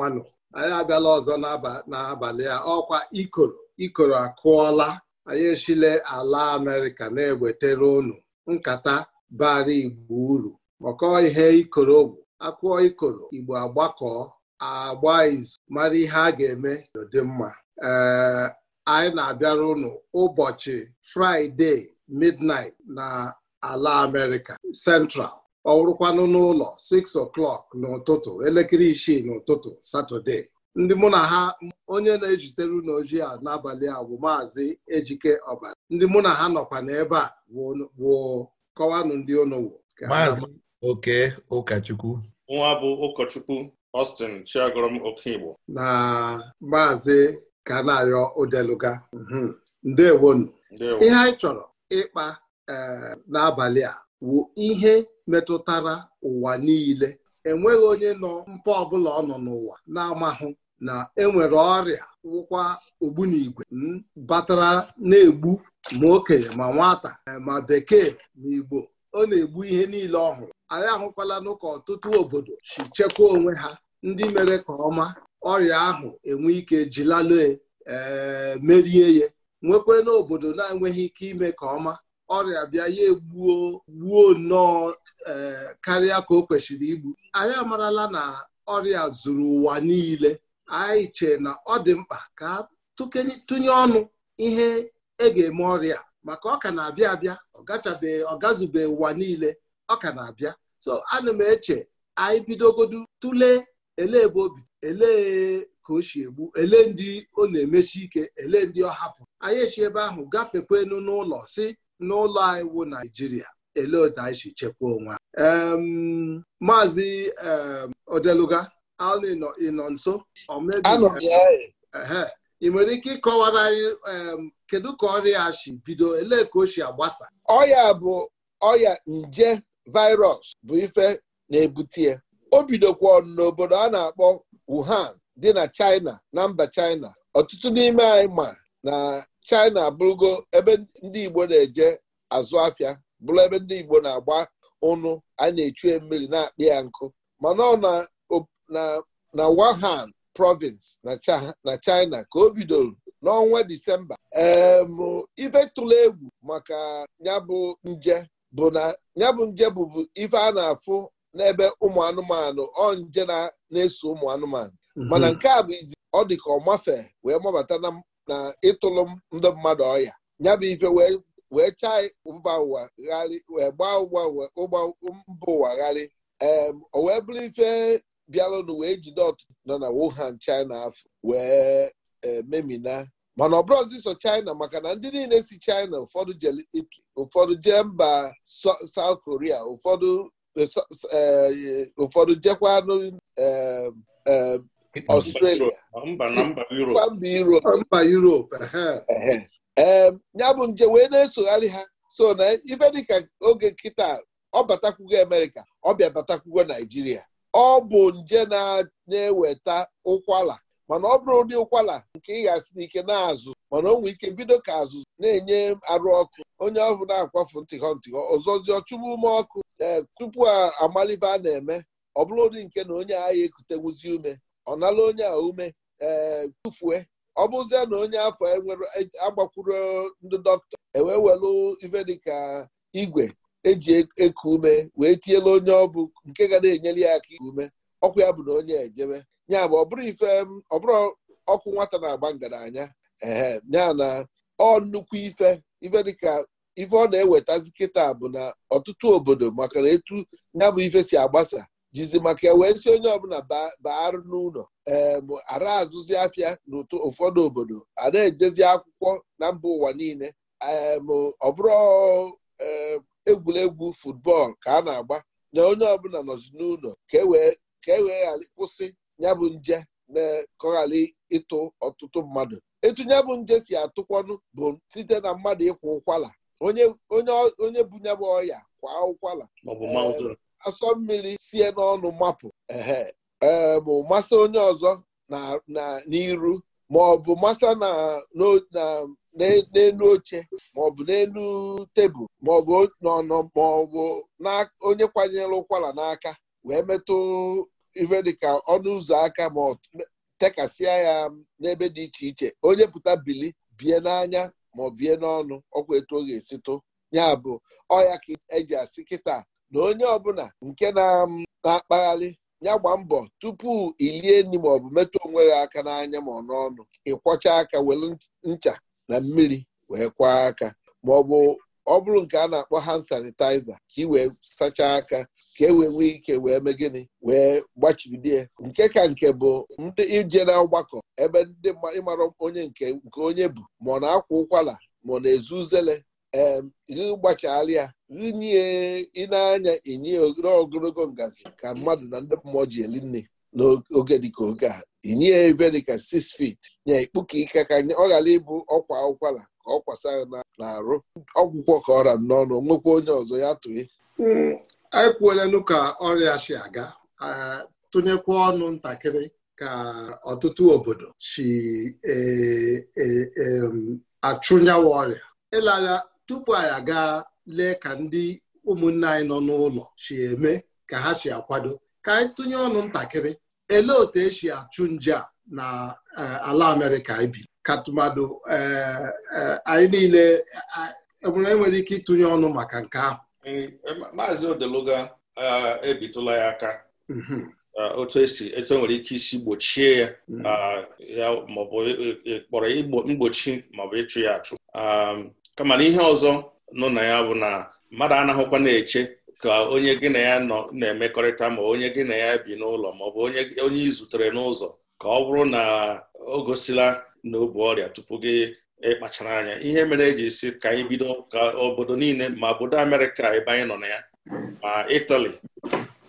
manụ anyị abịala ọzọ n'abalị a ọkwa ikoro ikoro akụọla anyị echile ala amerịka na-ewetere ụnụ nkata bara igbo uru maka ihe ikoro ogwu akụọ ikoro igbo agbakọọ agba izu mara ihe a ga-eme dị mma ee anyị na-abịara ụnụ ụbọchị fraịde midnait na ala amerịka central ọ wụrụkwanụ n'ụlọ 6 o'clock n'ụtụtụ elekere isii n'ụtụtụ satọde ndị mụ na ha onye na-ejitere n'oji a n'abalị a bụ maazị ejike ọbara ndị mụ na ha nọkwa n'ebe a wụ kọwanụ ndị unu maazị oke ụkọchukwu nwa bụ ụkọchukwu Austin Chiagorom Okigbo na maazị Kanayo Odeluga mhm. ndewonu ihe anyị chọrọ ịkpa eh, n'abalị a wụ ihe metụtara ụwa niile enweghị onye nọ mpa ọbụla ọ nọ n'ụwa na-amahụ na enwere ọrịa wụkwa ogbunigwe batara na-egbu ma okenye ma nwata eh, ma bekee ma igbo ọ na-egbu ihe niile ọhụrụ anyị ahụkwala n'ụka ọtụtụ obodo si chekwa onwe ha ndị mere ka ọma ọrịa ahụ enwe ike jilalụ eh, merie ya nwekwa n'obodo na-enweghị ike ime ka ọma ọrịa bịa ya egbuo gbuo nnọọ e, karịa ka o kwesịrị igbu anyị amarala na ọrịa zuru ụwa niile anyị chee na ọ dị mkpa ka tụnye ọnụ ihe e ga-eme ọrịa maka ọ ka na-abịa abịa ọgachabeghị ọgazube ụwa niile ọ ka na-abịa so ana m eche anyị bidogodu tụle elee ebe obi elee ka o si egbu elee ndị ọ na-emesi ike elee ndị ọ hapụ anyị echi ebe ahụ gafekwenu n'ụlọ si n'ụlọ anyị wụ Naijiria elee otu anyị si chekwaa onwe maazị Odeluga ịnọ nso e. ị nwere ike ịkọwara anyị kedu ka ọrịa a si bido elee ka o si agbasa ọya bụ ọya nje virus bụ ife na-ebute ya o bidokwa n'obodo a na-akpọ Wuhan dị na China na mba China ọtụtụ n'ime anyị ma na china abụrụgo ebe ndị igbo na-eje azụ afịa bụrụ ebe ndị igbo na-agba ụnụ a na-echue mmiri na-akpị ya nkụ mana ọ na wuhan province na china ka o bidoro n'ọnwa disemba ife tụrụ egwu maka nyabụ nje bụ na nyabụ nje bụbu ife a na-afụ n'ebe ụmụ anụmanụ ọ nje na-eso ụmụ anụmanụ mhm. mana nke a bụ izi ọ dị ka ọ wee mabata na na ịtụlụ ndị mmadụ ọya ya bụ ife wee chaa mba ụwa gharị wee gbaa ụgbọ mba ụwa gharị ee o wee bụrụ ife bịalụnụ wee jide otu nọ na Wuhan China afọ wee e, memina mana ọ bụrụzi so China maka na ndị niile si China ụfọdụ je ụfọdụ je mba South Korea ụfọdụ e, e, ụfọdụ jekwanụ Ọstrelia mba Europe ee ya bụ nje wee na-esogharị ha so na ife dịka oge nkịta ọ batakwugo Amerịka ọ bịa batakwugo Naijiria ọ bụ nje na-eweta ụkwala mana ọ bụrụ ụdị ụkwala nke ị ga-asị n'ike na-azụ mana o nwee ike bido ka azụ na-enye arụ ọkụ onye ọ bụla na-akwafu ntịghọ ntịghọ ọzọzi ọchụgbu ume ọkụ tupu amalive a na-eme ọ bụrụ ụdị nke na onye agha ekutenwuzi ume ọ nala onye a ume ee eh, tụfue ọ bụzie na onye afọ enwere e, agbakwuru ndị dọkịta ewee welu ife dịka igwe eji e, eku ume wee tiela onye ọbụ nke ga na-enyere ya aka ume ọkụ ya bụ na onye ejebe nya bụ ọ bụrụ ife ọ bụrụ ọkụ nwata na-agba ngaranya ee ya na ọ nnukwu ife ife dịka ife ọ na-ewetazi kịta bụ na ọtụtụ obodo maka na etu ya bụ ife si agbasa jizi maka ewee si onye ọbụla baarụ n'ụlọ eebụ ara azụzi afịa n'ụtụ ụfọdụ obodo a na-ejezi akwụkwọ na mba ụwa niile eebụ ọbụrụ egwuregwu futbọọlụ ka a na-agba na onye ọbụla nọzi n'ụlọ ka e wee e ghara kwụsị ya bụ nje ka ọ ghara ịtụ ọtụtụ mmadụ etu ya bụ nje si atụkwanụ bụ site na mmadụ ịkwa ụkwala onye onye ya bụ ọya kwa ụkwala asọ mmiri sie n'ọnụ mapụ ehe ee bụ masa onye ọzọ na n'iru ma ọ bụ masa n'elu oche ma ọ bụ n'elu tebụl ma ọ bụ n'ọnọ ma ọ bụ onye kwanyere ụkwara n'aka wee metụ ife dịka ọnụ ụzọ aka ma ọ tekasịa ya n'ebe dị iche iche onye pụta bili bie n'anya ma ọ bie n'ọnụ ọkwa etu ọ ga-esitụ ya bụ ọya ka eji asị kịta na onye ọbụla nke um, na-akpagharị ya gba mbọ tupu ilie nri maọbụ metụ onwe ya aka n'anya ma ọ n'ọnụ ịkwọcha aka were ncha na mmiri wee kwaa aka ma ọ bụrụ nke a na-akpọ hand sanitizer ka ị wee sachaa aka ka e wee nwee ike wee mee gịnị wee gbachibidie nke ka nke bụ ndị ije na ọgbakọ ebe ndị ịmara onye nke nke onye bụ ma ọ na-akwa ụkwara ma ọ na-ezu uzele ee gị ya inye ịnanya anya enye ogologo ngazi ka mmadụ na ndị mmụọ ji eli nne n'oge dịka oge a inye ya ebe dịka 6 feet nye ikpuka ike ka ọ ghara ịbụ ọkwa ụkwara ka ọ kwasara na-arụ ọgwụgwọ ka ọra n'ọnụ nwekwa onye ọzọ ya tụe anyị hmm, kwuolenụ ka ọrịa si aga tụnyekwa ọnụ ntakịrị ka ọtụtụ obodo si e, e, e, achụnyawa ọrịa Ịla ya, tupu anyị aga lee ka ndị ụmụnne anyị nọ n'ụlọ si eme ka ha si akwado ka anyị tụnye ọnụ ntakịrị elee otu esi achụ nje a na eh, ala Amerịka ibi ka tụmadụ eh, eh, anyị niile enwere ike ịtụnye ọnụ maka nke ahụ mm, maazị odeluga ebitụla ya aka mm-hmm. otu esi etu e nwere ike isi gbochie ya mm-hmm. ya maọbụ kpọrọ mgbochi maọbụ ịchụ ya achụ um, kama na ihe ọzọ nọ na ya bụ na mmadụ anaghịkwa na-eche ka onye gị na ya nọ na-emekọrịta ma onye gị na ya bi n'ụlọ ma ọ bụ onye ị zutere n'ụzọ ka ọ bụrụ na o gosila na ọrịa tupu gị ịkpachara anya ihe mere eji si ka anyị bido ka obodo niile ma obodo Amerịka ebe anyị nọ na ya ma Itali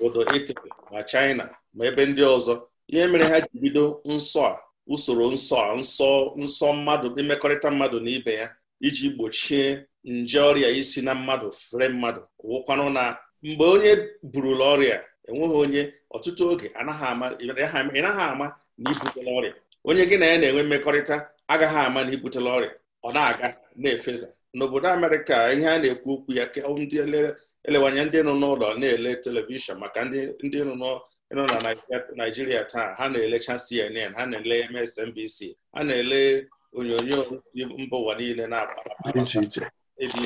obodo Itali ma China ma ebe ndị ọzọ ihe mere ha ji bido nsọ a usoro nsọ a nsọ nsọ mmadụ mmekọrịta mmadụ na ibe ya iji gbochie nje ọrịa isi na mmadụ fere mmadụ wụkwanụ na mgbe onye burula ọrịa enweghị onye ọtụtụ oge ị naghị ama na ibutela ọrịa onye gị na ya na-enwe mmekọrịta agaghị ama na ibutela ọrịa ọ na-aga na efeza n'obodo amerịka ihe a na-ekwu okwu ya ndị elewanye ndị nọ n'ụlọ na-ele telivishọn maka ndị nọ na naijiria taa ha na-elecha cnn ha na-ele msnbc ha na-ele onyonyo mba ụwa niile na-aba ebi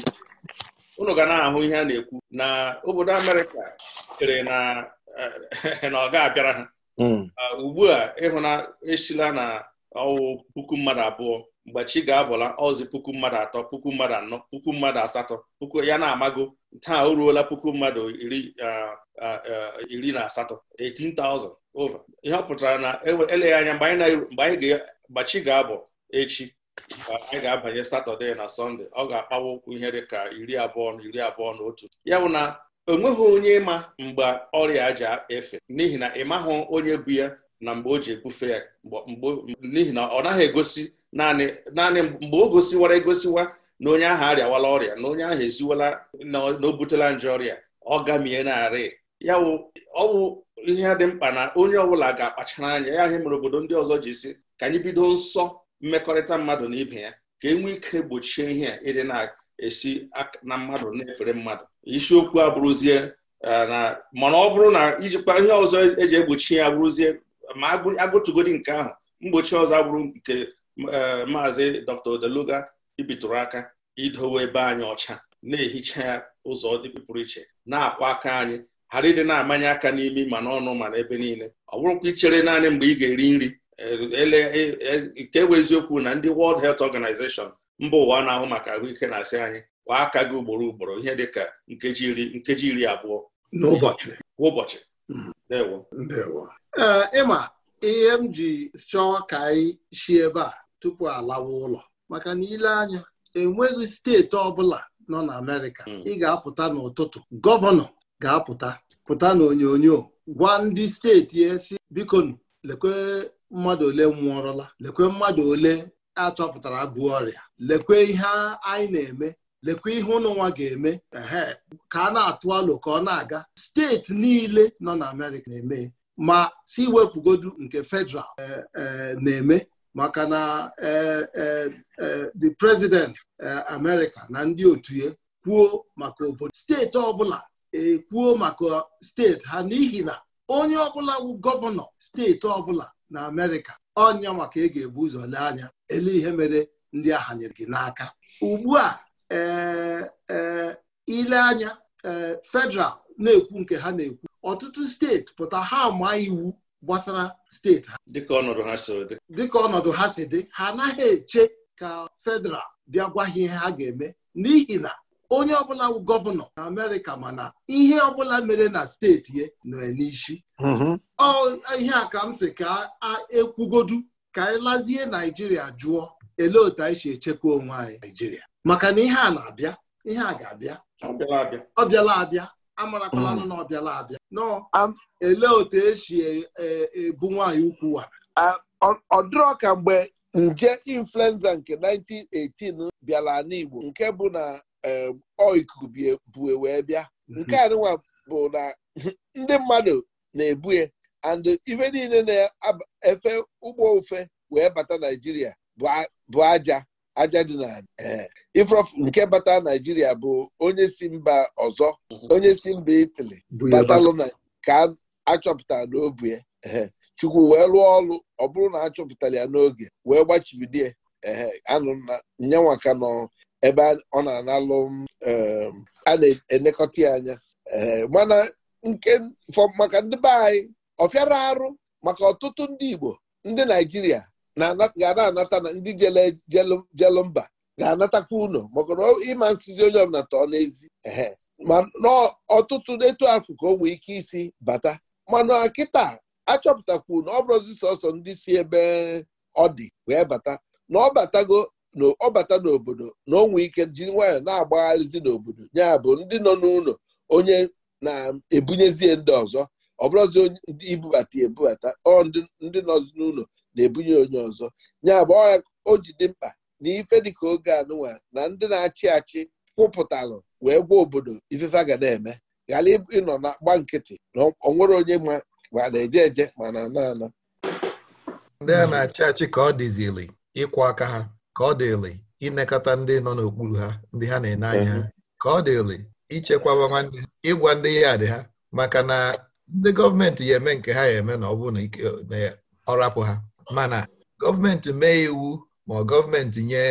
unu ga na-ahụ ihe a na-ekwu na obodo Amerịka chere na eh, ọ ga-abịara ha hmm. ah, ugbu a ịhụna esila na ọwụ puku mmadụ abụọ mgbe ga-abụla ọzi puku mmadụ atọ puku mmadụ anọ puku mmadụ asatọ puku ya na-amago taa o puku mmadụ iri ah, ah, na asatọ 18,000 over ihe ọ na e eleghị anya mgbe anyị ga-abụ echi anyị ga-abanye satọde na sọnde ọ ga-akpawa ụkwụ ihe dị ka iri abụọ na iri abụọ na otu ya bụ na onweghị onye ịma mgbe ọrịa ji efe n'ihi na ịmahụ onye bụ ya na mgbe o ji ebufe ya n'ihi na ọ naghị egosi naanị naanị mgbe o gosiwara egosiwa na onye ahụ arịawala ọrịa na onye ahụ eziwala na o butela nje ọrịa ọ gamie narị ya ọwụ ihe dị mkpa na onye ọbụla ga-akpachara anya ya ihe mere obodo ndị ọzọ ji si ka anyị bido nsọ mmekọrịta mmadụ na ibe ya ka enwee ike gbochie ihe a ịdị na-esi na mmadụ na-ekpere mmadụ isiokwu abụrụzie e, na mana ọ bụrụ na ijikwa ihe ọzọ eji egbochi ya abụrụzie ma agụtụgodi nke ahụ mgbochi ọzọ abụrụ nke e, maazị dr odeluga ibitụrụ aka idowe ebe anyị ọcha na-ehicha ya ụzọ dị iche na-akwa aka anyị ghara ịdị na-amanye aka n'imi ma n'ọnụ ma n'ebe niile ọ bụrụkwa ichere naanị mgbe ị ga-eri nri Eh, eh, eh, nke bụ eziokwu na ndị World Health Organization mba ụwa na-ahụ maka ahụike na-asị anyị kwa aka gị ugboro ugboro ihe dị ka nkeji iri nkeji iri abụọ n'ụbọchị ịma mhm. ihe m ji chọọ ka anyị si ebe a tupu alawa ụlọ maka na ile anya enweghị steeti ọbụla nọ na Amerịka mm. ị ga-apụta n'ụtụtụ gọvanọ ga-apụta pụta na onyonyo gwa ndị steeti esi bikonu lekwe mmadụ ole nwụọrọla lekwe mmadụ ole achọpụtara bụ ọrịa lekwe ihe anyị na-eme lekwe ihe ụnụnwa ga-eme ehe ka a na-atụ alụ ka ọ na-aga steeti niile nọ na Amerịka na-eme ma si wepụgodu nke federal e, e, na-eme maka na e, the president America na ndị otu ya kwuo maka obodo steeti ọbụla ekwuo maka steeti ha n'ihi na onye ọbụla bụ gọvanọ steeti ọbụla na amerịka ọnya maka ị ga-ebu ụzọ lee anya ele ihe mere ndị agha nyere gị n'aka ugbu a ee e, ile anya e, federal na-ekwu nke ha na-ekwu ọtụtụ steeti pụta ha ma iwu gbasara steeti ha dịka ọnọdụ ha si dị ha anaghị eche ka federal bịa gwa ha ihe ha ga-eme n'ihi na onye ọbụla gọvanọ na amerịka mana ihe ọbụla mere na steeti ya nọ n'isi mhm. ọ ihe a ka m sị ka ekwugodu ka anyị lazie naijiria jụọ ele otu anyị si echekwa onwe anyị naijiria maka na ihe a na-abịa ihe a ga-abịa ọ bịala abịa amarakwala nụ mhm. na ọ bịala abịa nọ um, ele otu esi e, e, ebu nwaanyị ukwu wara. Um, ọ dịrọ ka mgbe nje influenza nke 1918 bịara n'Igbo nke bụ na Um, ọ ikuku bue wee bịa mhm. nke a nwa bụ na ndị mmadụ na-ebue and ife niile na-efe ụgbọ ofe wee bata naijiria bụ aja aja dị na eh, ifrof nke bata naijiria bụ onye si mba ọzọ mhm. onye si mba itali batalụna ka achọpụtara n'obu ya eh, chukwu wee lụọ ọrụ ọ bụrụ na achọpụtara ya n'oge wee gbachibidie eh, anụ nyanwaka nọ ebe ọ na-analụ um, a na-elekọta ya anya um, mana nke maka ndị be anyị ọfịara arụ maka ọtụtụ ndị Igbo ndị Naijiria ga na-anata na ndị jelu mba ga-anatakwa ụlọ maka na ịma nsizi onye ọbụla tọọ n'ezi ehe ma n'ọtụtụ n'etu afụ ka o nwee ike isi bata mana kịta achọpụtakwu na ọ bụrụzi sọsọ ndị si ebe ọ dị wee bata na ọ batago na ọ bata n'obodo na onwe ike jiri nwayọọ na-agbagharịzi n'obodo ya bụ ndị nọ n'ụlọ onye na-ebunyezie ndị ọzọ ọ bụrụzi ndị ibubata ebubata ọ ndị nọzi n'ụlọ na-ebunye onye ọzọ ya bụ o ji dị mkpa na ife dịka oge anụwa na ndị na-achị achị kwụpụtalụ wee gwa obodo ifefe ga na-eme ghara ịnọ na gba nkịtị na onwere onye ma ma na-eje eje ma na ana ana ndị a na-achị achị ka ọ dịzili ịkwụ aka ha ka ọ dịrị inekọta ndị nọ n'okpuru ha ndị ha na-ene anya ha ka ọ dịrị ichekwaba nwanne ịgwa ndị ya dị ha maka na ndị gọọmenti ya eme nke ha ya eme na ọ bụ na ike ọ ha mana gọọmenti mee iwu ma gọọmenti nye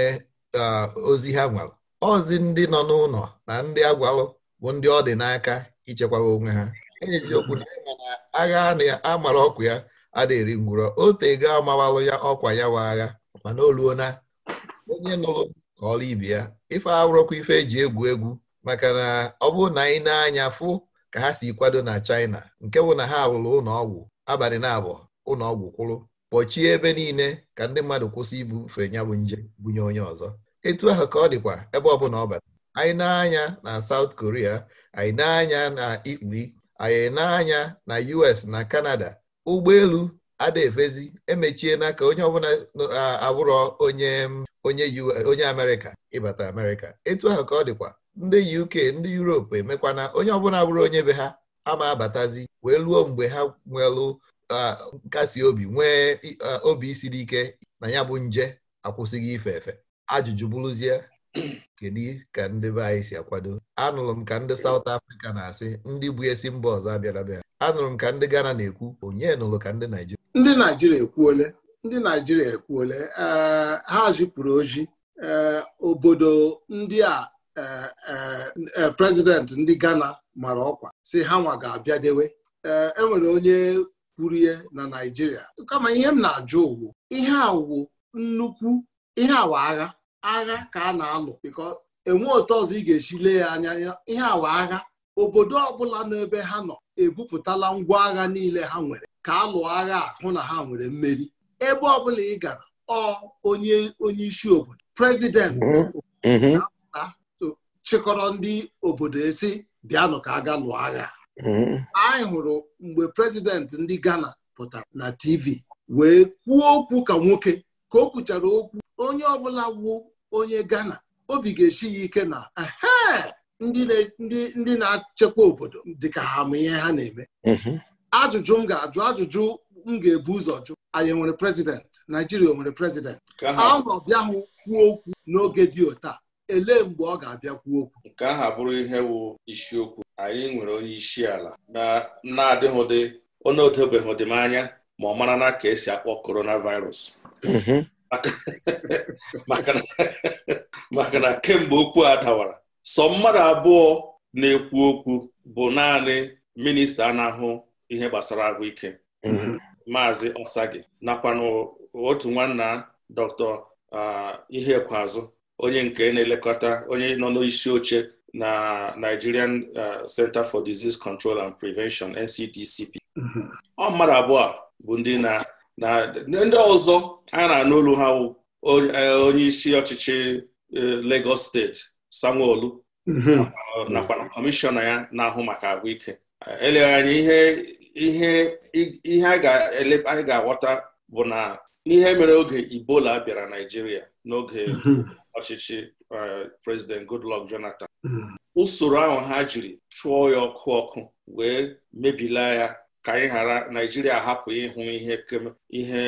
ozi ha nwere ozi ndị nọ n'ụlọ na ndị agwalụ bụ ndị ọ dị n'aka ichekwaba onwe ha eziokwu na na agha amara ọkụ ya adịrị ngwụrọ o tego amawalụ ya ọkwa ya wa agha mana oluona onye nụrụ ka ọla ibe ya ife awụrọkwa ife eji egwu egwu maka na ọ bụrụ na anyị na-anya fụ ka ha si kwado na China nke bụ na ha rụrụ ụlọ ọgwụ abalị na-abụọ ụlọ ọgwụ kwụrụ kpọchie ebe niile ka ndị mmadụ kwụsị ibufe ya bụ nje bunye onye ọzọ etu ahụ ka ọ dịkwa ebe ọ bụla ọ bata anyị na-anya na South Korea anyị na-anya na Italy anyị na-anya na US na Canada ụgbọelu ada efezi emechiena ka onye ọbụla abụrọ onye onye onye amerịka ịbata amerịka etu ahụ ka ọ dịkwa ndị uk ndị europe emekwana onye ọbụla abụrụ onye be ha ama abatazi wee luo mgbe ha nwelụ nkasi obi nwee obi siri ike na ya bụ nje akwụsịghị ife efe ajụjụ bụrụzie kedu ka ndị be anyị si akwado anụrụ m ka ndị saut afrịka na-asị ndị bụ esi mba ọzọ abịara bịa anụrụ m ka ndị Ghana na-ekwu onye nụrụ ka ndị Naijiria ndị Naijiria ekwuole ndị Naijiria ekwuole eh, ha zipụrụ oji eh, obodo ndị a eh, prezident ndị Ghana mara ọkwa si ha nwa ga-abịadewe enwere e onye kwuru ihe na Naijiria kama ihe m na-ajụ wu ihe awụ nnukwu ihe awa agha agha ka a na-alụ bịkọ enwe ụtọ ọzọ ị ga-eji lee ya anya ihe awa agha obodo ọbụla n'ebe ha nọ ebupụtala ngwa agha niile ha nwere ka a lụọ agha hụ na ha nwere mmeri ebe ọbụla ị gara ọ onye onye isi obodo prezidenti mm-hmm. mm-hmm. chịkọrọ ndị obodo esi bịanụ ka aga lụọ agha mm-hmm. anyị hụrụ mgbe prezident ndị Ghana pụtara na TV wee kwuo okwu ka nwoke ka o kwuchara okwu onye ọbụla wụ onye Ghana obi ga eshi ya ike na ndị na-achekwa obodo dịka ha ma ihe ha na-eme mhm. ajụjụ m ga-ajụ ajụjụ m ga-ebu ụzọ jụ anyị nwere prezident? Naijiria o nwere prezidentị ahụ ọbịahụ kwuo okwu n'oge dị otaa elee mgbe ọ ga-abịa kwuo okwu nke ahụ abụrụ ihe bụ isiokwu anyị nwere onye isi ala na-adịghị onye odobeghị anya ma ọ mara na ka esi akpọ coronavirus mhm. maka na kemgbe okwu a dawara sọ mmadụ abụọ na-ekwu okwu bụ naanị minista na-ahụ ihe gbasara ahụike mhm. maazị osagi nakwa otu nwanna dr Ihekweazụ onye nke na-elekọta onye nọ n'isi oche na Nigerian Center for Disease Control and Prevention nctcp mhm. ọ mmadụ abụọ bụ ndị na na ndị ọzọ a na-anụ olu ha wụ e, onye isi ọchịchị e, Lagos steeti Sanwo-Olu mhm. nakwa na kọmishọna ya na-ahụ maka ahụike eleghị anya ihe a ga-aghọta bụ na ihe mere oge Ebola bịara Naijiria n'oge mhm. ọchịchị e, President Goodluck Jonathan mhm. usoro ahụ ha jiri chụọ ya ọkụ ọkụ wee mebila ya ka anyị ghara naijiria hapụ ịhụ ihe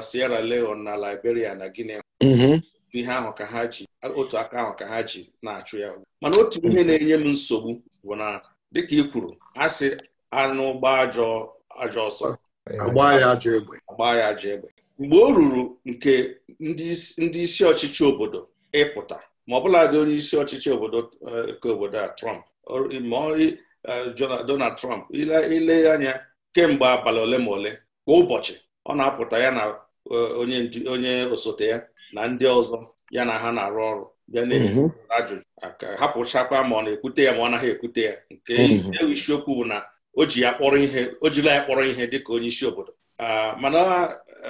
Sierra Leone na Liberia na Guinea mhm. ihe ahụ ka ha ji otu aka ahụ ka ha ji na-achụ ya mana otu ihe na-enye m nsogbu bụ na dịka ị kwuru a sị anụ gba ajọ ajọ ọsọ gbaa ya ajọ egbe mgbe o ruru nke ndị isi ọchịchị obodo ịpụta ma ọbụladị onye isi ọchịchị obodo eh, nke obodo a Trump Eh, Donald Trump ile anya kemgbe abalị ole ma ole kwa ụbọchị ọ na-apụta ya na eh, onye osote ya na ndị ọzọ ya na ha na-arụ ọrụ bịa na-ajụ mhm. hapụchakwa ma ọ na-ekwute ya ma ọ naghị ekwute ya nke mhm. e isiokwu bụ na o ji ya kpọrọ ihe o jila ya kpọrọ ihe onye isi obodo ah, mana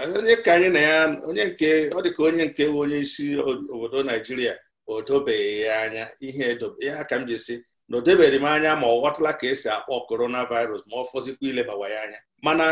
eh, onye ka anyị na ya onye nke ọ dịka onye nke onye isi obodo Naijiria o dobeghị ya anya ihe ya ka m ji si na o m anya ma ọ ghọtala ka esi akpọ korona coronavirus ma ọ fọzikwa ilebawa ya anya mana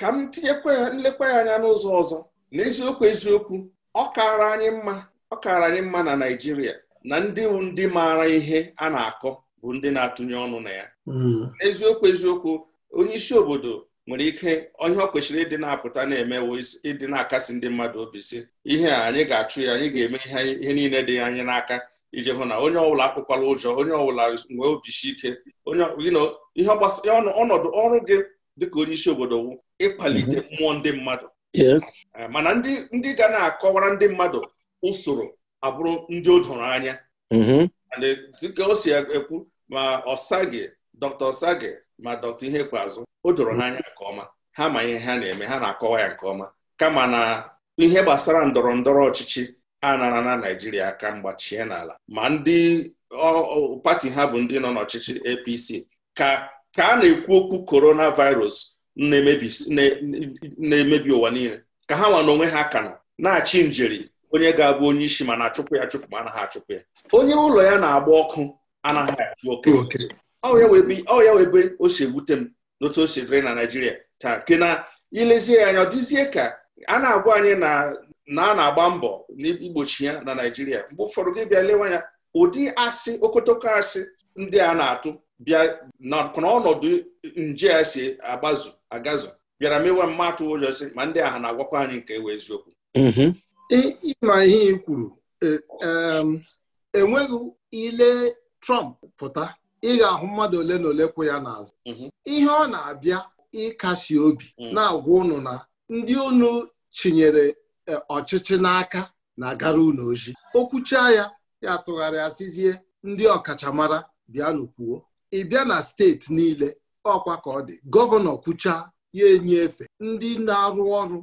ka m tinyekwa nlekwa ya anya n'ụzọ ọzọ n'eziokwu eziokwu ọ kaara anyị mma ọ kaara anyị mma na Naịjirịa na ndị ndị maara ihe a na-akọ bụ ndị na-atụnye ọnụ na ya hmm. eziokwu eziokwu onye isi obodo nwere ike ihe ọ kwesịrị ịdị na-apụta na-emewo ịdị na-akasi ndị mmadụ obi si ihe a anyị ga-achụ ya anyị ga-eme ihe niile dị anyị n'aka iji hụ na onye ọbụla akpụkwala ụjọ onye ọbụla nwee obisi ike ihe ọnọdụ ọrụ gị dịka onye isi obodo wụ ịkpalite mhm. mmụọ ndị mmadụ eh, mana ndị ga na-akọwara ndị mmadụ usoro abụrụ ndị o doro anya mhm. dịka o si ekwu ma ọsage Dr. ọsage ma dọkta ihe ikpeazụ o doro ha mhm. anya nke ọma ha ma ihe ha na-eme ha na-akọwa ya nke ọma kama na ihe gbasara ndọrọ ndọrọ ọchịchị anara na Naijiria aka mgbachie n'ala ma ndị pati ha bụ ndị nọ n'ọchịchị APC ka ka a na-ekwu okwu coronavirus na-emebi ụwa niile ka ha nwa n'onwe ha ka na na-achị njeri onye ga-abụ onye isi ma na-achụpụ ya achụpụ ma anaghị achụpụ ya onye ụlọ ya na-agba ọkụ anaghị achụ oke ọ ya webe o si ewute m n'otu o si dịrị na Naijiria taa ke na ilezie ya anya ọ dịzie ka a na-agwa anyị na na a na-agba mbọ igbochi ya na Naịjirịa mgbe ụfọdụ gị bịa lewe anya ụdị asị okotoko asị ndị a na-atụ bịa nakwana ọnọdụ nje a si agbazu agazu bịara mewe mmatụ ụjọ sị ma ndị aha na-agwakwa anyị nke wee eziokwu mm-hmm. ịma ihe ị kwuru enweghị e ile Trump pụta ị ga-ahụ mmadụ ole na ole kwụ ya n'azụ mm-hmm. ihe ọ na-abịa ịkasi obi mm. na-agwa ụnụ na ndị unu chinyere E, ọchịchị n'aka na-agara unu oji okwucha ya ya tụgharịa sizie ndị ọkachamara bịanụ ị bịa na steeti niile ọkwa ka ọ dị gọvanọ kwucha ya enye efe ndị na-arụ ọrụ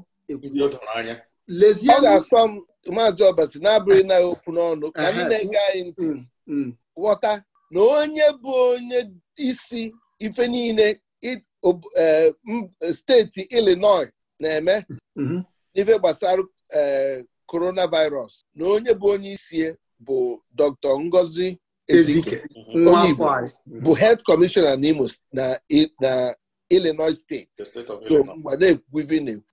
lezie ga-asọ m maazị ọbasi na-abụghị na okwu n'ọnụ ka anyị na-ege anyị ntị mm, mm. ghọta na onye bụ onye isi ife niile e, steeti Illinois na-eme mm-hmm. n'ife gbasara Eh, coronavirus na onye bụ onye isi bụ Dr. Ngozi Ezike mm-hmm. onye ibu bụ head commissioner n'Imo na Illinois steeti mm-hmm.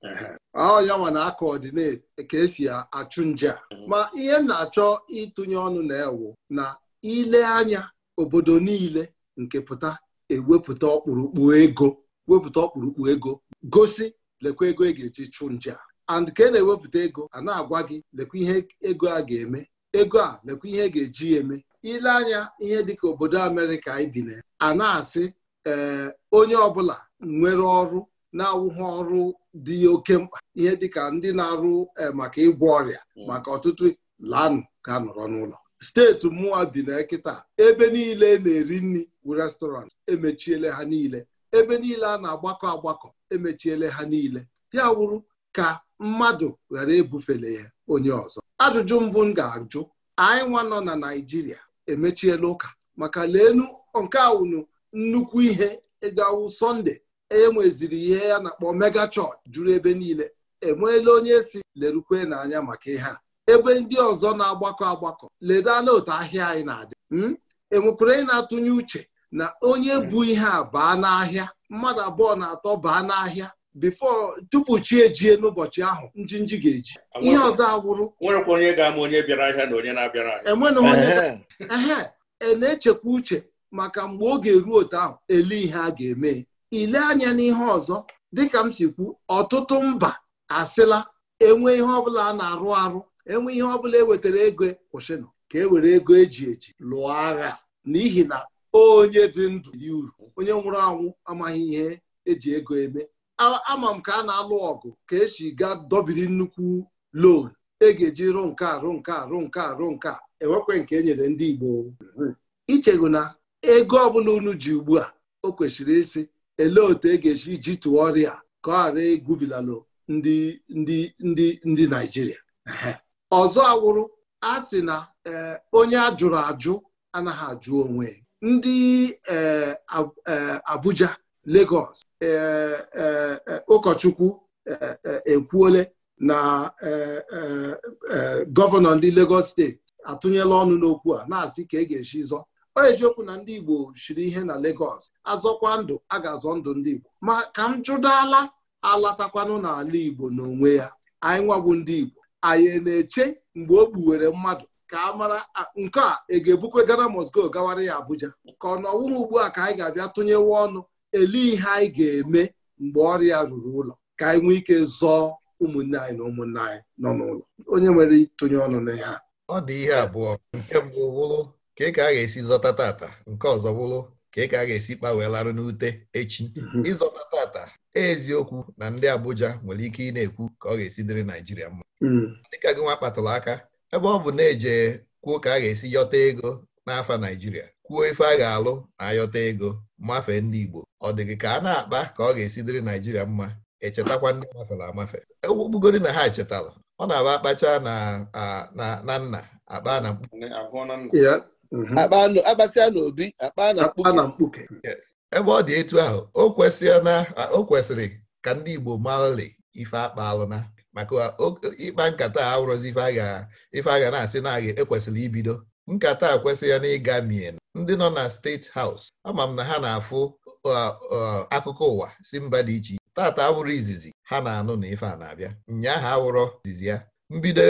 ya nwa na akọọdinate ka esi achụ nje mm-hmm. ma ihe na-achọ ịtụnye ọnụ na-ewu na ile anya obodo niile nke pụta ewepụta ọkpụrụkpụ ego wepụta ọkpụrụkpụ ego gosi lekwa ego e ga-eji chụ nje a and ka e na-ewepụta ego a na-agwa gị lekwa ihe ego a ga-eme ego a lekwa ihe ga-eji eme ile anya ihe dịka obodo Amerịka anyị bi na a na-asị ee onye ọbụla nwere ọrụ na-awụghị ọrụ dị oke mkpa ihe dịka ndị na-arụ eh, maka ịgwọ ọrịa hmm. maka ọtụtụ lanụ ka nọrọ n'ụlọ steeti mụwa bi na kịta ebe niile na-eri nri bụ restọrantị emechiele ha niile ebe niile a na-agbakọ agbakọ emechiele ha niile ya wụrụ ka mmadụ ghara ebufele ya onye ọzọ ajụjụ mbụ m ga-ajụ anyị nwa nọ na naijiria emechiela ụka maka leenu nke awụnụ nnukwu ihe ịgawụ sọnde enweziri ihe ya na-akpọ mega chọọchị juru ebe niile enweela onye si lerukwe n'anya maka ihe a ebe ndị ọzọ na-agbakọ agbakọ leda n'otu ahịa anyị na-adị hmm? enwekwara anyị na-atụnye uche na onye bụ ihe a baa n'ahịa mmadụ abụọ na atọ baa n'ahịa bifo tupu chi ejie n'ụbọchị ahụ nji ga-eji ihe ọzọ agwụrụ nwerekwa onye ga-ama onye bịara ahịa na onye na-abịara ahịa onye ehe e na-echekwa uche maka mgbe oge ruo otu ahụ ele ihe a ga-eme ile anya n'ihe ọzọ dịka m si kwu ọtụtụ mba asịla enwe ihe ọbụla a na-arụ arụ enwe ihe ọbụla e wetara ego kwụsịnụ ka e were ego eji eji lụọ agha n'ihi na onye dị ndụ yi uru onye nwụrụ anwụ amaghị ihe eji ego eme ama m ka a na-alụ ọgụ ka esi ga dobiri nnukwu loan e ga-eji rụ nke arụ nke arụ nke arụ nke enwekwe nke e nyere ndị Igbo ichego na ego ọbụla unu ji ugbu a o kwesịrị isi elee otu e ga-esi ji tụọ ọrịa ka ọ ghara egwubilalụ ndị ndị ndị ndị Naijiria ọzọ awụrụ a sị na e, onye a jụrụ ajụ anaghị ajụ onwe ndị e, e, Abuja Legọs. ụkọchukwu ekwuole na gọvanọ ndị Lagos steeti atụnyela ọnụ n'okwu a na-asị ka e ga-esi zọ ọ eziokwu na ndị Igbo shiri ihe na Lagos azọkwa ndụ a ga-azọ ndụ ndị Igbo ma ka m jụdala alatakwanụ n'ala Igbo n'onwe ya anyị nwagbu ndị Igbo anyị na-eche mgbe o gbuwere mmadụ ka a mara nke a ị e ga-ebukwe gara Moscow gawara ya Abuja ka ọ nọwụghị ugbu a ka anyị ga-abịa tụnyewe ọnụ ele ihe anyị ga-eme mgbe ọrịa ruru ụlọ ka anyị nwee ike zọọ ụmụnne anyị na ụmụnne anyị nọ n'ụlọ onye nwere itonye ọnụ n'ihe a ọ dị ihe abụọ nke mbụ wụrụ ka ị ka a ga-esi zọta tata nke ọzọ wụrụ ka ị ka a ga-esi kpawelarụ n'ute echi mhm. ịzọta tata e eziokwu na ndị Abuja nwere ike ị na-ekwu ka ọ ga-esi dịrị Naijiria mma mhm. dịka gị nwa kpatụrụ aka ebe ọ bụ na-eje kwuo ka a ga-esi yọta ego n'afa Naijiria kwuo ife a ga-alụ na ayọta ego mmafe ndị Igbo ọ dị gị ka a na-akpa ka ọ ga-esi dịrị Naijiria mma echetakwa ndị mafere amafe egbugoro na ha echetala ọ na-aba akpacha na nna akpa na mkpuke na mkpuke ebe ọ dị etu ahụ o kwesịrị ka ndị Igbo marali ife akpaalụna maka ịkpa nkata a ife a ga na-asị na ekwesịrị ibido nkata a kwesịghị na ịga mien ndị nọ na steeti haus ama m na ha na-afụ uh, uh, akụkọ ụwa si mba dị iche iche tata awụrụ izizi ha na-anụ na ife a na-abịa nnya ha awụrọ izizi ya mbido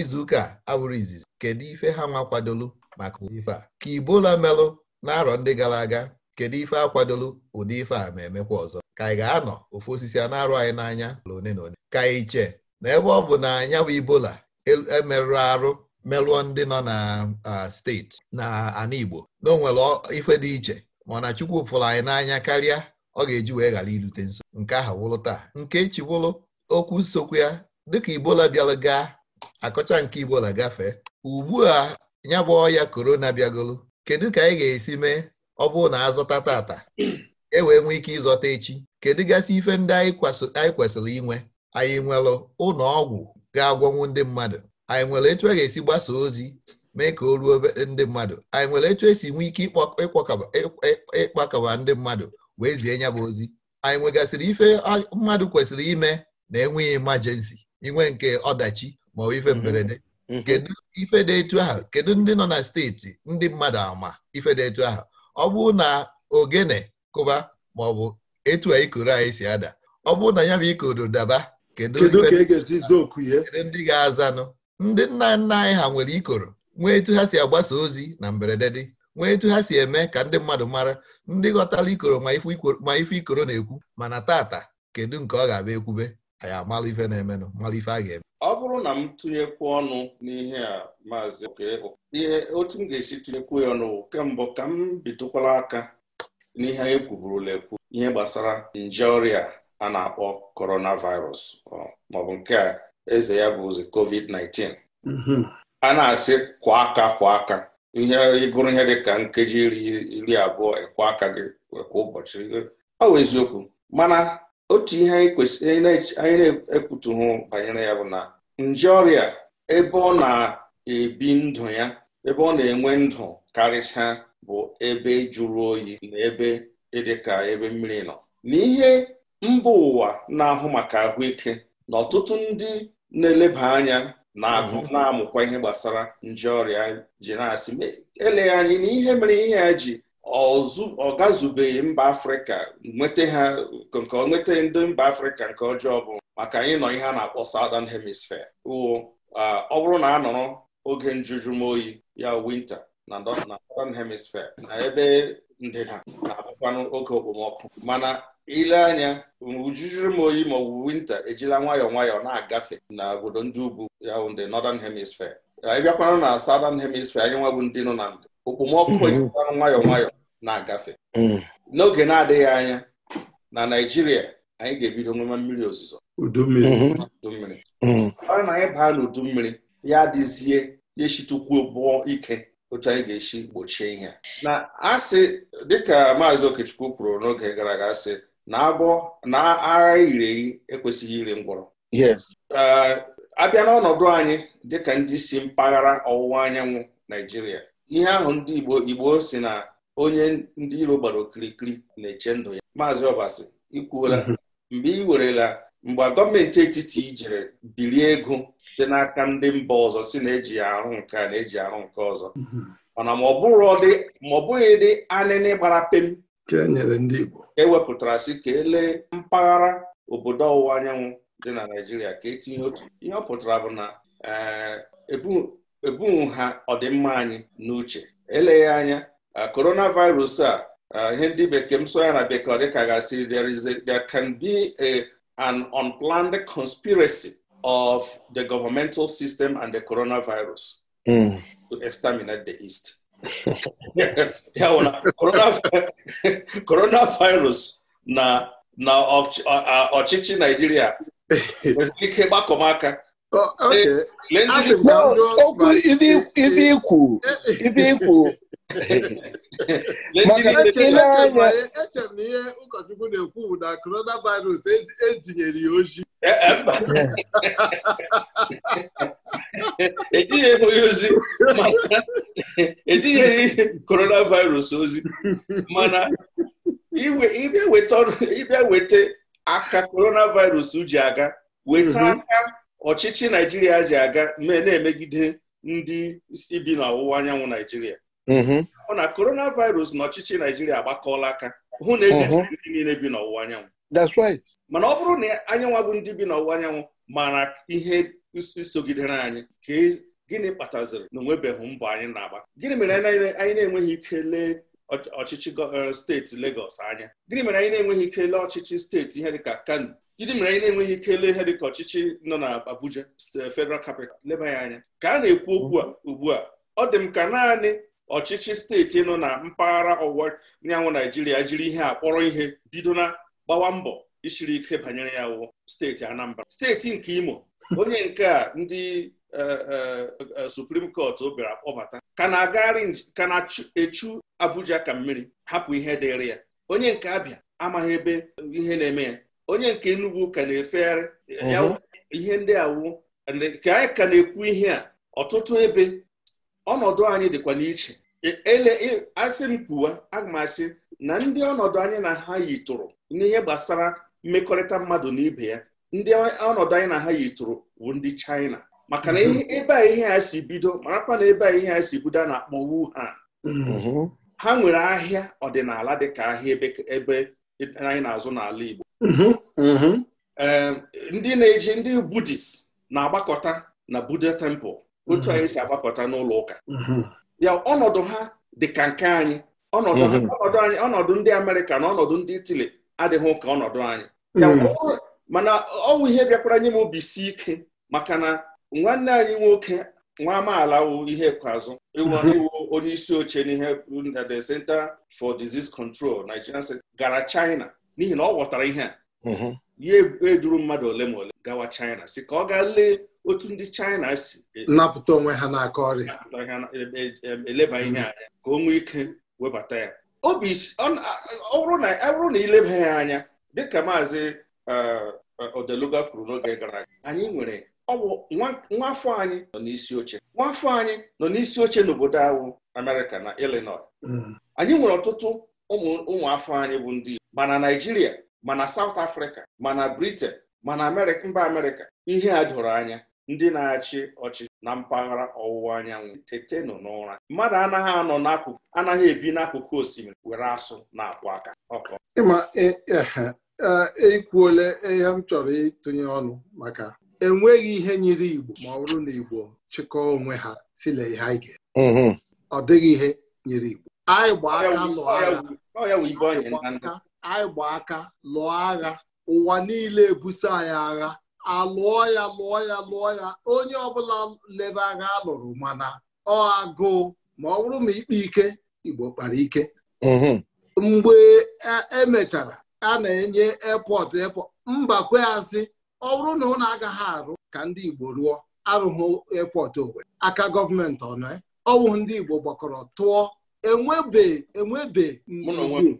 izuụka awụrụ izizi kedu ife ha nwa kwadolu maka ife a ka ibola melụ na-arọ ndị gara aga kedu ife akwadolu ụdị ife a ma emekwa ọzọ ka anyị ga-anọ ofu osisi a na-arụ anyị n'anya ole na ole ka anyị chee na ebe ọ bụ na anyanwụ ibola emerụrụ e arụ melụọ ndị nọ na steeti na ana Igbo na onwere ife dị iche mana Chukwu fụrụ anyị n'anya karịa ọ ga-eji wee ghara irute nso nke aha wụrụ taa nke echi wụrụ okwu sokwe ya dịka ibola bịara gaa akọcha nke Igbola gafee ugbu a ya bụ ọya korona bịagolu kedu ka anyị ga-esi mee ọ bụrụ na azụta tata e wee nwee ike ịzọta echi kedu gasị ife ndị anyị kwesịrị inwe anyị nwere ụlọ ọgwụ ga-agwọnwu ndị mmadụ anyị nwere etu a ga-esi gbasa ozi mee ka o ruo ndị mmadụ anyị nwere etu esi nwee ike ịkpakọba ndị mmadụ wee zie ya bụ ozi anyị nwegasịrị ife mmadụ kwesịrị ime na enweghị imajensi inwe nke ọdachi ma ọ ife mhm. mberede mhm. kedu ife dị etu ahụ kedu ndị nọ na steeti ndị mmadụ ama ife dị etu ahụ ọ bụrụ na ogene kụba ma ọ bụ etu a ikoro anyị si ada ọ bụrụ na ya bụ ikodo daba e kedu ndị ga-azanụ ndị nna nna anyị ha nwere ikoro nwee etu ha si agbasa ozi na mberede dị nwee etu ha si eme ka ndị mmadụ mara ndị ghọtara ikoro ma ife ikoro na-ekwu mana tata kedu nke ọ ga-abịa ekwube anyị amala ife na-emenụ mala ife a ga-eme ọ bụrụ na m tụnyekwu ọnụ n'ihe a maazị ihe otu m ga-esi tụnyekwu ya ọnụ kemgbe ka m bitụkwala aka n'ihe anyị kwuburula ekwu ihe gbasara nje ọrịa a na-akpọ coronavirus maọbụ nke a eze ya bụ covid-19 mhm. a na-asị kwa aka kwa aka ihe ịgụrụ ihe dịka nkeji iri abụọ ekwe aka gị kwa ụbọchị ọ bụ eziokwu mana otu ihe anyị na-ekwutughụ banyere ya bụ na nje ọrịa ebe ọ na-ebi ndụ ya ebe ọ na-enwe ndụ karịsịa bụ ebe jụrụ oyi na ebe dịka ebe mmiri nọ n'ihe mba ụwa na-ahụ maka ahụike na ọtụtụ ndị na-eleba anya na amụkwa ihe gbasara nje ọrịa ji na-asị eleghị anyị na ihe mere ihe ya ji ọ gazubeghị mba afrịka nweta ha nke nweta ndị mba afrịka nke ọjọọ bụ maka anyị nọ ihe a na-akpọ southern hemisphere wụ ọ bụrụ na a nọrọ oge njuju m oyi ya winta na northern hemisphere na ebe ndịda na-abụkwanụ oge okpomọkụ mana ile anya ujuju m oyi ma ọ winta ejila nwayọọ nwayọọ na-agafe na obodo ndị ugwu ya the northern hemisphere anyị bịakwana na southern hemisphere anyị nwa bụ ndị nọ na ndụ okpomọkụ mhm. ejila nwayọọ nwayọ na-agafe mhm. n'oge na-adịghị anya na naijiria anyị ga-ebido nwema mmiri ozuzo Udummiri. mmiri mhm. ọrụ na anyị baa n'udummiri mmiri ya adịzie ya eshitukwu bụọ ike otu anyị ga eshi gbochie ihe na asị dịka maazị okechukwu kwuru n'oge gara aga asị na agwọ na agha ireghi ekwesịghị ire ngwọrọ abịa n'ọnọdụ anyị dịka ndị si mpaghara ọwụwa anyanwụ Naijiria ihe ahụ ndị Igbo Igbo si na onye ndị iro gbara okirikiri na-eche ndụ ya maazị Ọbasi ikwuola mhm. mgbe ị werela mgbe gọọmenti etiti ijere bilie ego dị n'aka ndị mba ọzọ si na-eji arụ nke a na-eji arụ nke ọzọ mhm. mana ma ọ bụghị dị anịnị gbara pem Nke nyere ndị Igbo ewepụtara si ka e elee mpaghara obodo ọwụwa anyanwụ dị na Naịjirịa ka etinye otu ihe ọpụtara bụ na eh, ebu ha ọdịmma anyị n'uche eleghị anya eh, coronavirus a eh, ihe ndị bekee m so ya na bekee ọ gasị there can be a an unplanned conspiracy of the governmental system and the coronavirus hmm. to exterminate the East ya bụ na coronavirus na na ọchịchị naijiria nwere ike gbakọm aka ndị ibe ikwu maka ile anya echere na ihe ụkọchukwu na-ekwu bụ na coronavirus ejinyere e ya oji etinyeghị e, e onye ozi etinyeghị coronavirus ozi mana ịbịa weta aka coronavirus ji aga weta mhm. aka ọchịchị naijiria ji aga na-emegide ndị bi n'ọwụwa anyanwụ naijiria Ọ mhm. na virus na ọchịchị naijiria agbakọọla aka hụ na mhm. ndị niile bi n'ọwụwa anyanwụ mana ọ bụrụ na anyanwụ bụ ndị bi n'ọwụwa anyanwụ mara ihe sogidere anyị ka e, gịnị kpataziri na onwebeghị mbọ anyị na-agba gịnị mere anyị na-enweghị ike lee ọchịchị eh, steeti Lagos anya gịnị mere anyị na-enweghị ike lee ọchịchị steeti ihe dịka Kano gịnị mere anyị na-enweghị ike lee ihe dịka ọchịchị nọ na Abuja Federal Capital leba ya anya ka a na-ekwu okwu a ugbu a ọ dị m ka naanị ọchịchị steeti nọ na mpaghara ọwụwa anyanwụ naijiria jiri ihe a kpọrọ ihe bido na gbawa mbọ isiri ike banyere ya wụ steeti anambra steeti nke imo onye nke a ndị e, e, e, suprim kọt bịara kpọbata ka na-agagharị ka na-echu abuja ka mmiri hapụ ihe dịrị ya onye nke abịa amaghị ebe ihe na-eme ya onye nke enugwu ka na-efegharị ihe ndị awụ ka anyị ka na-ekwu ihe a ọtụtụ ebe ọnọdụ anyị dịkwa n'iche e, ele e, asị m kwuwa aga m asị na ndị ọnọdụ anyị na ha yitụrụ n'ihe gbasara mmekọrịta mmadụ na ibe ya ndị ọnọdụ anyị na ha yitụrụ bụ ndị China maka na ebe a ihe a si bido marakwa na ebe a ihe a si bido a na-akpọ Wuhan mm-hmm. ha nwere ahịa ọdịnala dịka ahịa ebe anyị na-azụ n'ala Igbo mm-hmm. Mm-hmm. ndị na-eji ndị Budist na-agbakọta na Buddha temple otu mm-hmm. anyị si agbapụta n'ụlọ ụka mm-hmm. ya ọnọdụ ha dị ka nke anyị ọnọdụ mm-hmm. anyị ọnọdụ ndị Amerịka na ọnọdụ ndị Itali adịghị ụka ọnọdụ anyị mana ọnwụ ihe bịakwara nye m obi si ike maka na nwanne anyị nwoke nwa amaala wụ ihe ikpeazụ iwu onye isi oche n'ihe the Center for Disease Control Nigeria gara China n'ihi na ọ ghọtara ihe a ya ejuru mmadụ ole ma ole gawa China si ka ọ gaa lee otu ndị China si e napụta onwe ha n'aka ọrịa e, e, eleba ihe anya ka o nwee ike webata ya obi ọ bụrụ na ileba ya anya dịka maazị Odeluga kwuru n'oge gara aga anyị nwere nwafọ anyị nọ n'isi oche nwafọ anyị nọ n'isi oche n'obodo ahụ Amerịka na Illinois mm. anyị nwere ọtụtụ ụmụafọ anyị bụ ndị mana ma na mana South Africa mana Britain mana mba Amerịka ihe a doro anya ndị na-achị ọchị na mpaghara ọwụwa anyanwụ nọ n'ụra mmadụ anaghị anọ n'akụkụ anaghị ebi n'akụkụ osimiri were asụ na-akpụ aka ịma ekwuole e, e, e, ihe m chọrọ ịtụnye ọnụ maka enweghị ihe nyere Igbo ma ọ bụrụ na Igbo chịkọọ onwe ha sile ihe anyị ga mm-hmm. ọ dịghị ihe nyere Igbo anyị gba aka lụọ agha anyị gba aka lụọ agha ụwa niile ebuso anyị agha alụọ ya lụọ ya lụọ ya onye ọbụla lere agha alụrụ mana ọ agụụ ma ọ bụrụ ma ikpe ike Igbo kpara ike mhm. mgbe emechara e a na-enye epọt epọt mbakwe asị ọ bụrụ na ụlọ agaghị arụ ka ndị Igbo rụọ arụghị epọt Owerri aka gọọmenti ọnụ eh? ọ bụ ndị Igbo gbakọrọ tụọ enwebe enwebe enwe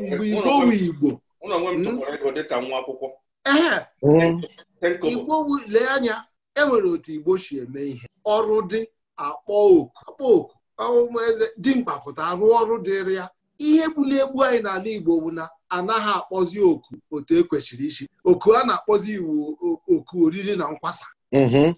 mgbe igbo wu igbo ee hmm? hmm. igbo lee anya enwere otu igbo si eme ihe ọrụ dị akpọ oku akpọ oku e, dimkpa pụta arụ ọrụ dịrị ya ihe bụ na-egbu anyị n'ala igbo bụ na anaghị akpọzi oku otu ekwesịrị isi oku a na-akpọzi iwu oku oriri na nkwasa hmm.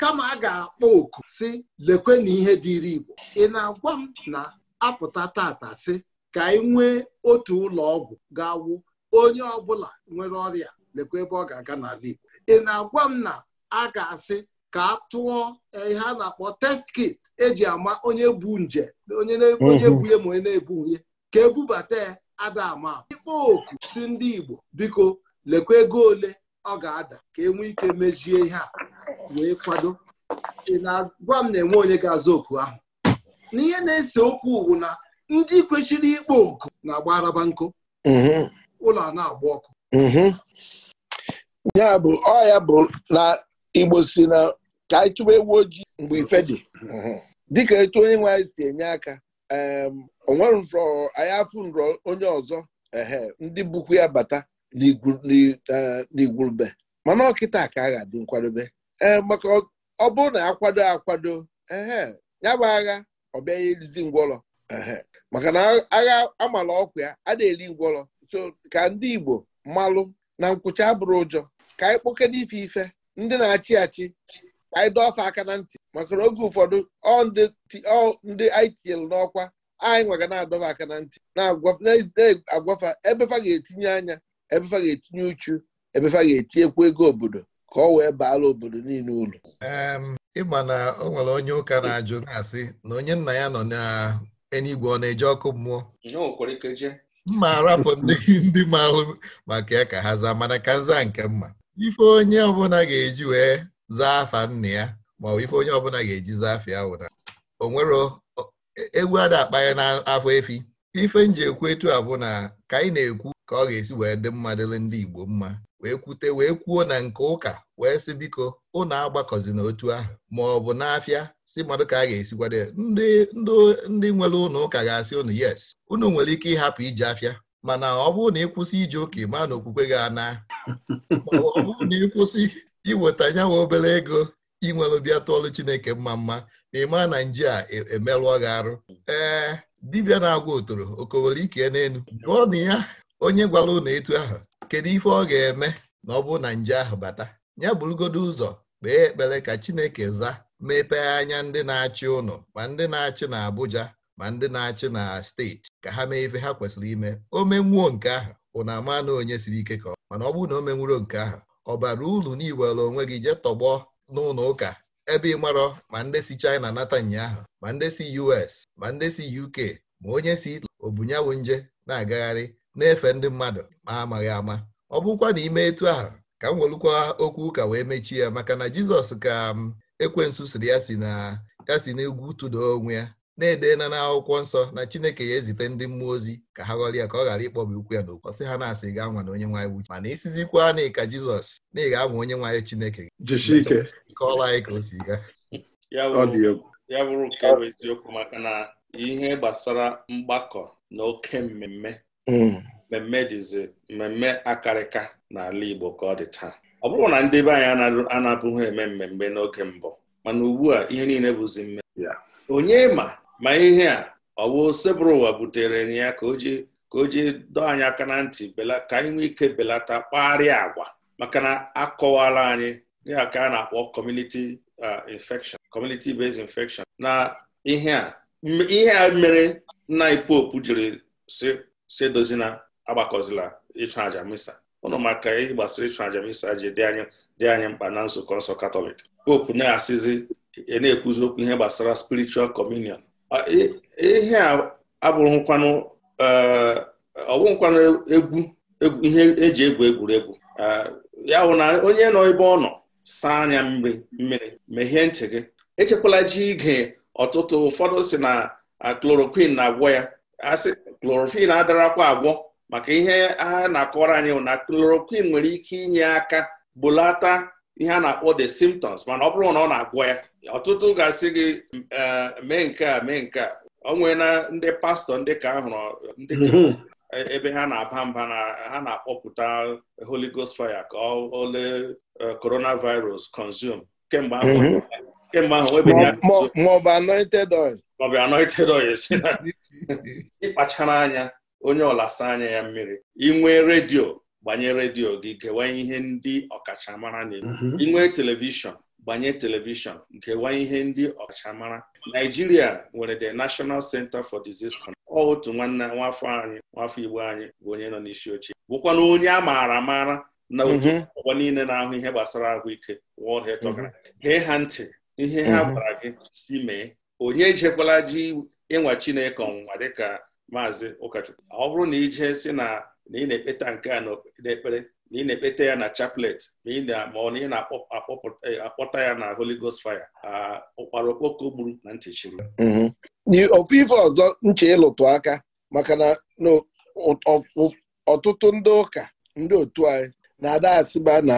kama a ga-akpọ oku si lekwe na ihe dịịrị Igbo ị na-agwa m na apụta tata si ka anyị nwee otu ụlọ ọgwụ ga-awụ onye ọbụla nwere ọrịa lekwe ebe ọ ga-aga n'ala Igbo ị na-agwa m na a ga-asị ka a tụọ e, ihe a na-akpọ test kit eji ama onye bu nje onye ebu mhm. ya ma onye na-ebu e ya ka ebubata ya ada ama ịkpọ oku si ndị Igbo biko lekwe ego ole ọ ga-ada ka e nwee ike mejie ihe a wee kwado ị na-agwa m na-enwe onye ga aza oku ahụ n'ihe na-ese okwu bụ na ndị kwechiri ikpo oku na-agba araba nkụ mhm. ụlọ a na-agba ọkụ mhm. ya bụ ọ ya bụ na igbo si na ka anyị ewu ojii mgbe ife dị mhm. dịka etu onye nwe si enye aka onwe nrọ anyị afụ nrọ onye ọzọ ndị bukwu ya bata n'igwurube e, mana ọkịta ka a ga-adị nkwadobe ee maka ọ bụrụ na akwado akwado ya bụ agha ọ bịaghị elizi ngwọrọ maka na agha amala ọkụ ya a na-eli ngwọrọ so ka ndị Igbo mmalụ na nkwụcha abụrụ ụjọ ka anyị kpokede ife ife ndị na-achị achị ka anyị dọfe aka na ntị maka na oge ụfọdụ ọ ndị ITL n'ọkwa anyị nwaga na-adọfe aka na ntị na-agwafa ebefa ga-etinye anya ebefa ga-etinye uchu ebefa ga-etinyekwu ego obodo ka ọ wee baala obodo niile ulu ịma na o nwere onye ụka na-ajụ na-asị na onye nna ya nọ n'eluigwe ọ na-eje ọkụ mmụọ mma arapụ ndị ma ahụ maka ya ka ha zaa mana ka nza nke mma ife onye ọbụla ga-eji wee zaa afa nna ya ma ọ bụ ife onye ọbụla ga-eji zaa ya wụra o nwere egwu ada akpa ya n'afọ efi ife nji ekwu etu a bụ na ka anyị na-ekwu ka ọ ga-esi wee dị mma dịrị ndị Igbo mma wee kwute wee kwuo na nke ụka wee sị biko ụnụ agbakọzi n'otu ahụ ma ọ bụ n'afịa si mmadụ ka a ga-esikwado ya ndị ndị nwere ụnụ ụka ga-asị ụnụ yes unu nwere ike ịhapụ ije afịa mana ọ bụrụ na ịkwụsị ije ụka ịma na okwukwe ga-ana ọ bụrụ na ịkwụsị iweta nyanwa obere ego inwere bịa tụọlụ Chineke mma mma na ịma na nje a e, e gị arụ ee dibịa na-agwa otoro okowere ike n'elu gụọ na ya onye gwara ụnụ etu ahụ kedu ife ọ ga-eme na ọ bụ na nje ahụ bata ya bụrụgodu ụzọ kpee ekpere ka Chineke zaa mepee anya ndị na-achị ụnụ ma ndị na-achị na Abuja ma ndị na-achị na steeti ka ha mee ife ha kwesịrị ime o menwuo nke ahụ ụnụ ama na onye siri ike ka ọ mana ọ bụrụ na o menwuro nke ahụ ọ bara uru na onwe gị jee tọgbọ n'ụlọ ụka ebe ị marọ ma ndị si China nata ụnyaahụ ma ndị si US ma ndị si UK ma onye si Italy nje na-agagharị na-efe ndị mmadụ ma amaghị ama ọ bụrụkwa na ime etu ahụ ka m welukwa okwu ụka wee mechie ya maka na Jizọs ka m um, ekwensu siri ya si na ya si n'egwu tụda onwe ya na na n'akwụkwọ nsọ na Chineke ya ezite ndị mmụọ ozi ka ha ghọrọ ya ka ọ ghara ịkpọba ukwu ya n'ụkọ sị ha na-asị gaa nwa na onye nwaanyị wuchi mana isizikwa na ịka Jizọs na ịga ama onye nwaanyị Chineke kọọla anyị ka o si gaa ya bụrụ nke bụ eziokwu maka na ihe gbasara mgbakọ na oke mmemme Mm. mmemme dịzi mmemme akarịka n'ala Igbo ka ọ dị taa ọ bụrụ na ndị be anyị anapụghị eme mmemme n'oge mbụ mana ugbu a ihe niile bụzi mmemme onye ma ma ihe a ọ bụ sebụrụ ụwa butere ya ka o ji ka o ji dọọ anyị aka na ntị ka anyị nwee ike belata kpagharị agwa maka na akọwala anyị ya ka a na-akpọ community uh, infection community based infection na ihe a ihe a mere nna anyị jiri si si edozina agbakọzila ịchụ àjà misa ụnụ maka ihe gbasara ịchụ àjà misa ji dị anyị dị anyị mkpa na nzukọ nsọ katọlik popu na-asịzi e na-ekwuzi okwu ihe gbasara spiritual communion e, ihe a abụrụkwanụ e, ọbụghịkwanụ egwu ihe eji egwu egwuregwu ya bụ na onye nọ ebe ọ nọ saa anya mmiri mmiri mehie ntị gị echekwala ji ige ọtụtụ ụfọdụ si na chloroquine na-agwọ ya asị chloroquine adarakwa agwọ maka ihe a na akọrọ anyị na chloroquine nwere ike inye aka bulata ihe a na-akpọ the symptoms mana ọ bụrụ na ọ na-agwọ ya ọtụtụ ga-asị gị mee nke a mee nke a ọ ndị pastọ ndị ka ahụrụ ndị mhm. ebe ha na-aba mba na ha na-akpọpụta Holy Ghost fire ka ọ ole e, coronavirus consume kemgbe ahụ mhm. kemgbe ahụ ọ bụ anointed oil ma ọ bụ anointed oil si na ịkpachara anya onye ọlasa anya ya mmiri inwe redio gbanye redio gị kewanye ihe ndị ọkachamara na-eme inwee mhm. televishọn gbanye televishọn nkewanye ihe ndị ọkachamara Naijiria nwere the National Center for Disease Control otu nwanne nwafọ anyị nwafọ Igbo anyị bụ onye nọ n'isi oche bụkwana onye a maara amara na otu mhm. ọgbọ niile na-ahụ ihe gbasara ahụike World Health mhm. Organization ha ntị ihe ha gwara gị si mee onye ejekwala ji ịnwa Chineke ọnwụnwa dịka maazị ụkọchukwu ọ bụrụ na ijee si na na ị na-ekpeta nke a n'ekpere na ị na-ekpeta ya na chaplet ma ọ na ị na-akpọta e, ya na Holy Ghost fire ụkpara okpoko gburu na ntị chiri mm-hmm. ofu ife ọzọ nche ịlụtụ aka maka na ọtụtụ ndị ụka ndị otu anyị na-ada asịba na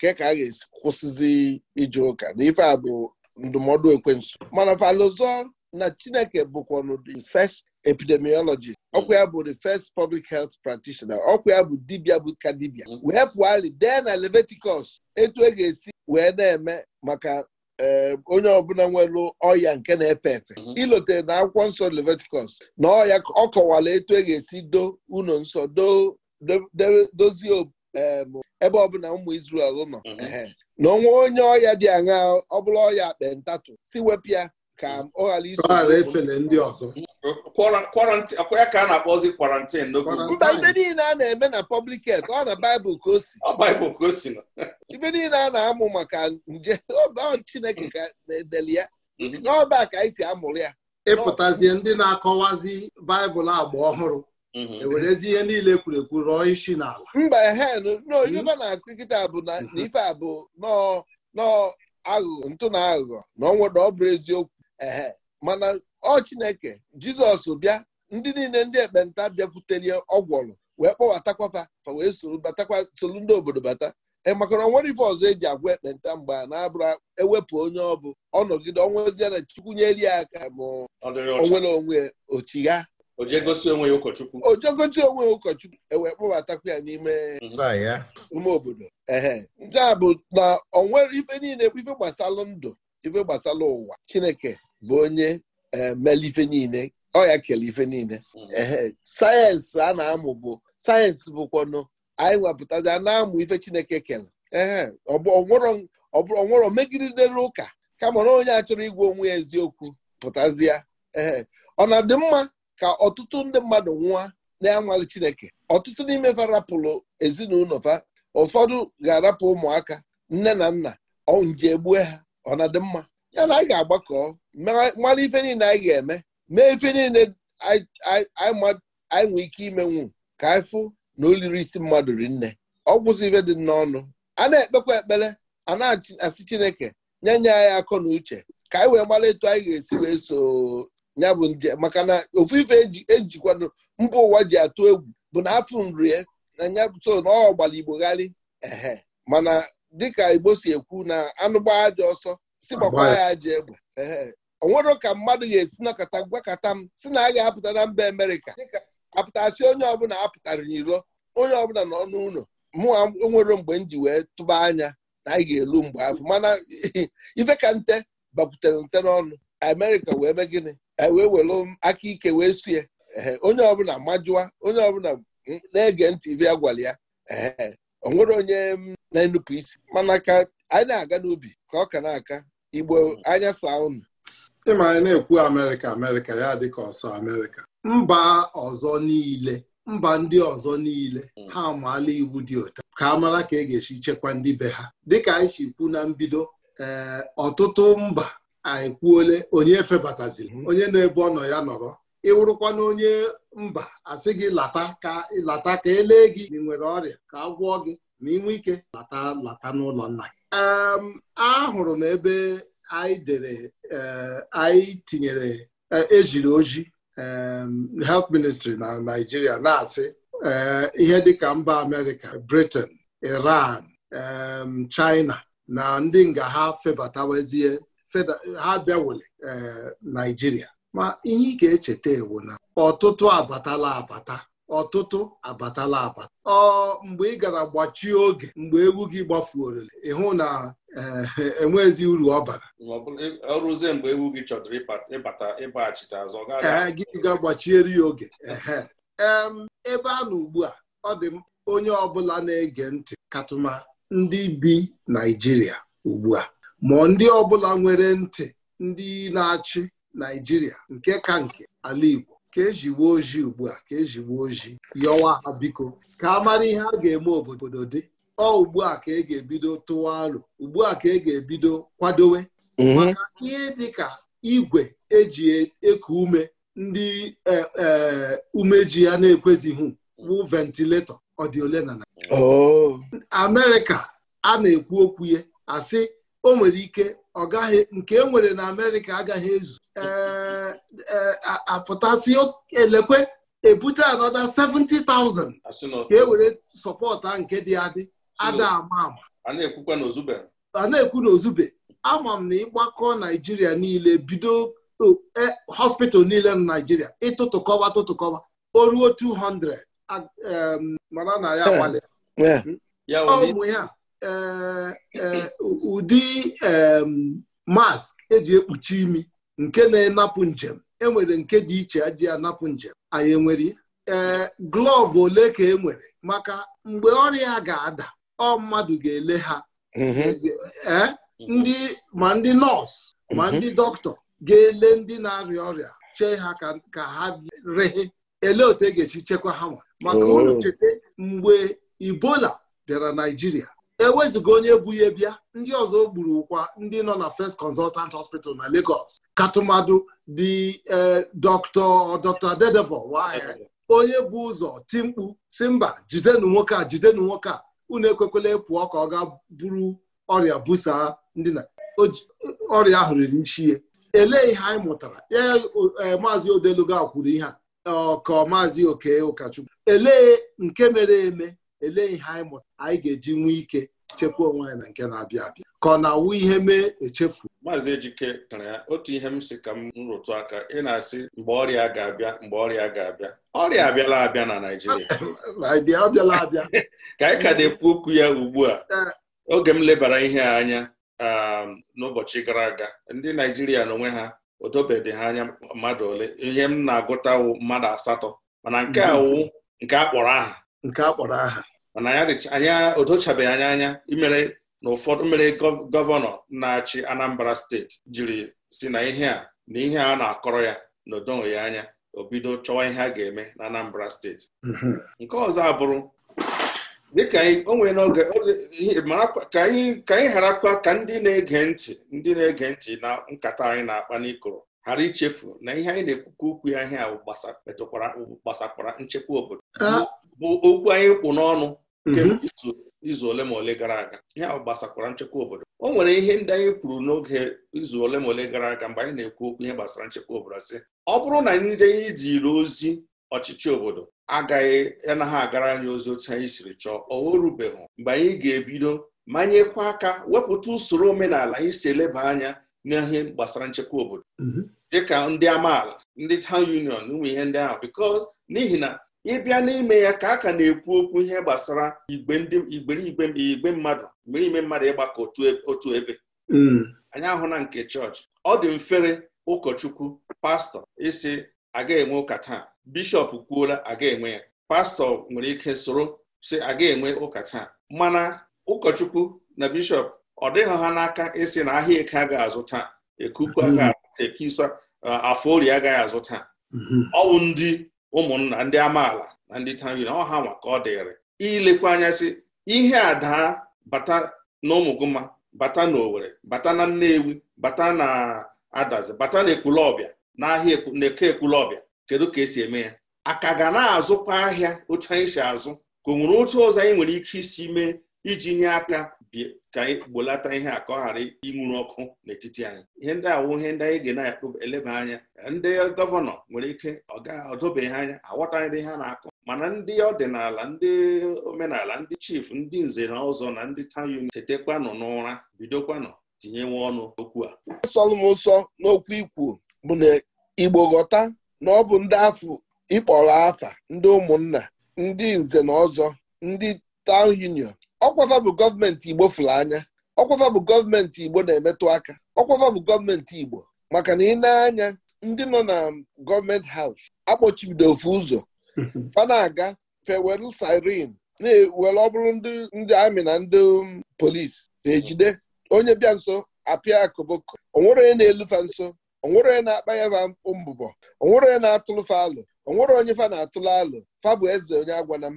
ke ka a ga-esi kwụsịzi ije ụka na ife a bụ ndụmọdụ ekwensu mana falụzọ na chineke bụkwanụ the first epidemiologist mm-hmm. ọkwa ya bụ the first public health practitioner ọkwa ya bụ dibia bụ ka dibia mm-hmm. wee pụali dee na Leviticus etu e ga-esi wee na-eme maka eh, onye ọbụla nwere ọya nke na-efe efe mm-hmm. ilotere na akwụkwọ nsọ Leviticus na ọya ọ kọwala etu e ga-esi do ụlọ nsọ dozie ebe ọbụla ụmụ izrel nọ na onwe onye ọya dị aṅa ọ bụla ọya akpentatu si wepụ ya ka ọ ghara iso efele ndị ọzọ ya ka a na-akpọzi kwarantin mba ibe niile a na-eme na public health ọ na baịbụl ka o si baịbụl ka o si ibe niile a na-amụ maka nje Chineke ka na-edeli ya mm-hmm. n'ọba ka anyị si amụrụ ya ịpụtazie ndị na-akọwazi baịbụl agba ọhụrụ mm-hmm. ewerezi ihe niile ekwurekwu rọọ isi n'ala mba hen n'oyibo mm-hmm. na-akụ nkịta bụ na ife a bụ nọọ aghụghọ ntụ na aghụghọ na ọ nwere ọ bụrụ eziokwu ee mana ọ chineke jizọs bịa ndị niile ndị ekpenta bịakwutere ọgwọlụ wee kpọbatakwa fa wee soro batakwa solu ndị obodo bata ịmakọrọ nwere ife ọzọ eji agwa ekpenta mgbe a na-abụrụ ewepụ onye ọ bụ nọgide ọnwụzie na chukwu nyeri ya aka ma onwere onwe ochigha ojegosi onwe ya ụkọchukwu ewee e kpọbatakwa ya n'ime ume mhm. obodo ehe ndị a bụ na onwere ife niile ife gbasara ndụ ife gbasara ụwa chineke bụ onye emela eh, ife niile ọ ya kele ife niile hmm. sayensị a na-amụ bụ sayensị bụkwanụ anyị wepụtazi a na-amụ ife Chineke kele ee onwero megidere ụka kama na onye a chọrọ onwe ya eziokwu pụtazịa ee ọ na-adị mma ka ọtụtụ ndị mmadụ nwa na-anwaghị Chineke ọtụtụ n'ime fa ezinụlọ fa ụfọdụ ga-arapụ ụmụaka nne na nna ọ nje gbue ha ọ na-adị mma ya na anyị ga-agbakọ mara ife niile anyị ga-eme mee ife niile anyị nwee ike imenwu ka anyị fụ na oliri isi mmadụ ri nne ọ gwụsị ife dị n'ọnụ a na-ekpekwa ekpere a na-asị chineke nye nye anyị akọ na uche ka anyị wee mara etu anyị ga-esi wee so ya bụ nje maka na ofu ife ejikwanụ e mba ụwa ji atụ egwu bụ na afọ nrie na ya so na ọ gbara igbogharị ehe mana dịka igbo si ekwu na anụ gbaa ajọ ọsọ si ya ajọ egbe onwero ka mmadụ ga-esi nọkọta gwakọta m si na a ga-apụta na mba Amerịka apụtasị onye ọbụla apụtara n'iro onye ọbụla nọ n'ụlọ mụ nwere mgbe m ji wee tụba anya na anyị ga-elu mgbe afọ mana ife ka nte bakwutere nte n'ọnụ. Amerika wee mee gịnị e wee were aka ike wee sue onye ọbụla majụwa onye ọbụla na-ege ntị ibe ya gwara ya onwere onye na-enupụ isi mana ka anyị na-aga n'ubi ka ọ ka na-aka Igbo anya saa unu anyị na-ekwu Amerịka Amerịka ya dịka ọsọ Amerịka mba ọzọ niile mba ndị ọzọ niile hmm. ha amaala iwu dị ụtọ ka a mara ka e ga-esi chekwa ndị be ha dịka anyị si kwu na mbido ee eh, ọtụtụ mba anyị kwuole onye febataziri onye na-ebu ọnọ ya nọrọ ịwụrụkwana onye mba asị gị lata ka lata ka elee gị ị nwere ọrịa ka a gwọọ gị ma ị nwee ike lata lata n'ụlọ nna gị ahụrụ m ebe anyị dere eh, anyị tinyere eh, ejiri oji health ministry na Naịjirịa na-asị eh, ihe dịka mba Amerịka Britain Iran China na ndị nga ha febatawezie ha bịawole Naijiria ma ihe ị ga-echeta ewu na ọtụtụ abatala abata ọtụtụ abatala abata ọ mgbe ị gara gbachie oge mgbe egwu gị gbafuorele ịhụ na enwezi eh, e uru ọ bara mgbe gị chọdụrụ ịbata azụ eh, ga ya oge ebe a na ugbu a ọ dị onye ọbụla na-ege ntị katụma ndị bi Naịjirịa ugbu a ma ndị ọbụla nwere ntị ndị na-achị Naịjirịa nke ka nke ala Igbo ka eji ojii ugbu a ka eji ojii yọwa ha biko ka a mara ihe a ga-eme obodo dị ọ ugbu a ka e ga-ebido tụwa alụ ugbu a ka e ga-ebido kwadowe mhm. maka ihe dị ka igwe eji e, eku ume ndị e, e, umeji ya na-ekwezighị bụ ventiletọ ọ dị na oh. Amerịka a na-ekwu okwu ya asị o nwere ike ọ nke e nwere na amerịka agaghị ezu e, apụtasị elekwe ebute anọda 70,000 ka e were sọpọta nke dị adị ada ama ama a na-ekwu na ozube ama m na ịgbakọ naijiria niile bido e, hospital niile na naijiria ịtụtụkọwa tụtụkọwa o ruo 200 mara na ya eh, eh. ya Eh, eh, ụdị mask eji ekpuchi imi nke na-enapụ njem enwere nke dị iche eji anapụ njem anyị enwere ee eh, glọvụ ole ka e nwere maka mgbe ọrịa ga-ada ọ mmadụ ga-ele ha mhm. e ndị ma ndị nọọsụ ma mhm. ndị dọkịta ga-ele ndị na-arịa ọrịa chee ha ka ha rehe ele otu e ga-echi chekwa ha maka ụlọ oh. cheta mgbe ibola bịara naijiria ewezụga onye bụ ihe bịa ndị ọzọ gburu ụkwa ndị nọ na First Consultant Hospital na Lagos katụmadụ dị e, Dr. Dr. Dedevo onye bụ ụzọ timkpu si mba jidenu nwoke a jidenu nwoke a unu ekwekwela pụọ ka ọ ga buru ọrịa busaa ndị na ọrịa ahụ riri nchie elee ihe anyị mụtara ee e, maazị Odeluga kwuru ihe a ka maazị Oke Ụkachukwu elee nke mere eme elee ihe anyị mụta anyị ga-eji nwee ike chekwa onwe anyị na nke na-abịa abịa ka ọ na-awụ ihe mee echefu maazị Ejike tara ya otu ihe m si ka m rụtụ aka ị na-asị mgbe ọrịa ga-abịa mgbe ọrịa ga-abịa ọrịa abịala abịa na Naịjirịa abịala abịa ka anyị ka na-ekwu okwu ya ugbu a eh. oge m lebara ihe anya um, n'ụbọchị gara aga ndị Naijiria n'onwe ha o dobedị ha anya mmadụ ole ihe m na-agụtawu mmadụ asatọ mana nke a mm-hmm. wụ nke a kpọrọ aha nke a aha mana anya odochabeghị anya anya imere na ụfọdụ mere gọvanọ na-achị Anambra steeti jiri si na ihe a na ihe a na-akọrọ ya na odonwe anya obido chọwa ihe a ga-eme na Anambra steeti mhm. nke ọzọ abụrụ dịka n'oge ka anyị ghara kwa ka ndị na-ege ntị ndị na-ege ntị na nkata anyị na-akpa n'ikoro ghara ichefu na ihe anyị na-ekwukwa okwu ya ihe ahụ gbasakwara nchekwa obodo bụ okwu anyị kwụ n'ọnụ mhm. izu ole ma ole gara aga ihe ahụ gbasakwara nchekwa obodo o nwere ihe ndị anyị kwuru n'oge izu ole ma ole gara aga mgbe anyị na-ekwu okwu ihe gbasara nchekwa obodo si ọ bụrụ na ndị anyị jiri ozi ọchịchị obodo agaghị anaghị agara anyị ozi otu anyị siri chọọ o rubeghị mgbe anyị ga-ebido manyekwa aka wepụta usoro omenala anyị si eleba anya n'ihe gbasara nchekwa obodo mhm. dịka ndị amaala ndị town union ụmụ ihe ndị ahụ biko n'ihi na ịbịa n'ime ya ka a ka na-ekwu okwu ihe gbasara igbe ndị igberigbe igbe mmadụ mgbe ime mmadụ ịgbakọ otu e, ebe mm. anyị ahụ na nke chọọchị ọ dị mfere ụkọchukwu pastọ isi aga enwe ụka taa bishọp kwuola aga enwe ya pastọ nwere ike soro si aga enwe ụka taa mana ụkọchukwu na bishọp ọ dịghị ha n'aka isi na ahịa eke a ga-azụ taa aga ekisa uh, afọ orie agaghị azụ taa mm-hmm. ọwụ ndị ụmụnna ndị amaala na ndị tari na ọha nwa ka ọ dịrị ilekwa anya sị ihe a daa bata na ụmụgụma bata na Owerri bata na Nnewi bata na Adazi bata na Ekwulọbịa n'ahịa na-eke Ekwulọbịa kedu ka esi eme ya aka ga na-azụkwa ahịa otu anyị si azụ ka o nwere otu ụzọ anyị nwere ike isi mee iji nye aka ka anyị gbolata ihe a ka ọ ghara inwuru ọkụ n'etiti anyị ihe ndị awụ ihe ndị anyị ga na-eleba anya ndị gọvanọ nwere ike ọ ga anya aghọtaghị ndị ha na-akọ mana ndị ọdịnala ndị omenala ndị chief ndị nze na ọzọ na ndị tawn tetekwanụ n'ụra bidokwanụ tinyewe ọnụ okwu a solụmụsọ n'okwu ikwu bụ na igbo ghọta na ọ bụ ndị afọ ịkpọrọ afa ndị ụmụnna ndị nze na ọzọ ndị taụn union ọkwafa bụ gọọmenti igbo fụrụ anya ọkwafa bụ gọọmenti igbo na-emetụ aka ọkwafa bụ gọọmenti igbo maka na ị na-anya ndị nọ na gọọmenti haus akpọchibido ofu ụzọ fana na-aga fewelu sirin na-ewere ọbụrụ bụrụ ndị amị na ndị um, polisi ejide onye bịa nso apịa akụbụkọ onwere onye na-elufa nso onwere onye na-akpa ya fa mbụbọ onwere onye na-atụlụfa alụ onwere onye fa na-atụlụ alụ fa bụ eze onye agwana m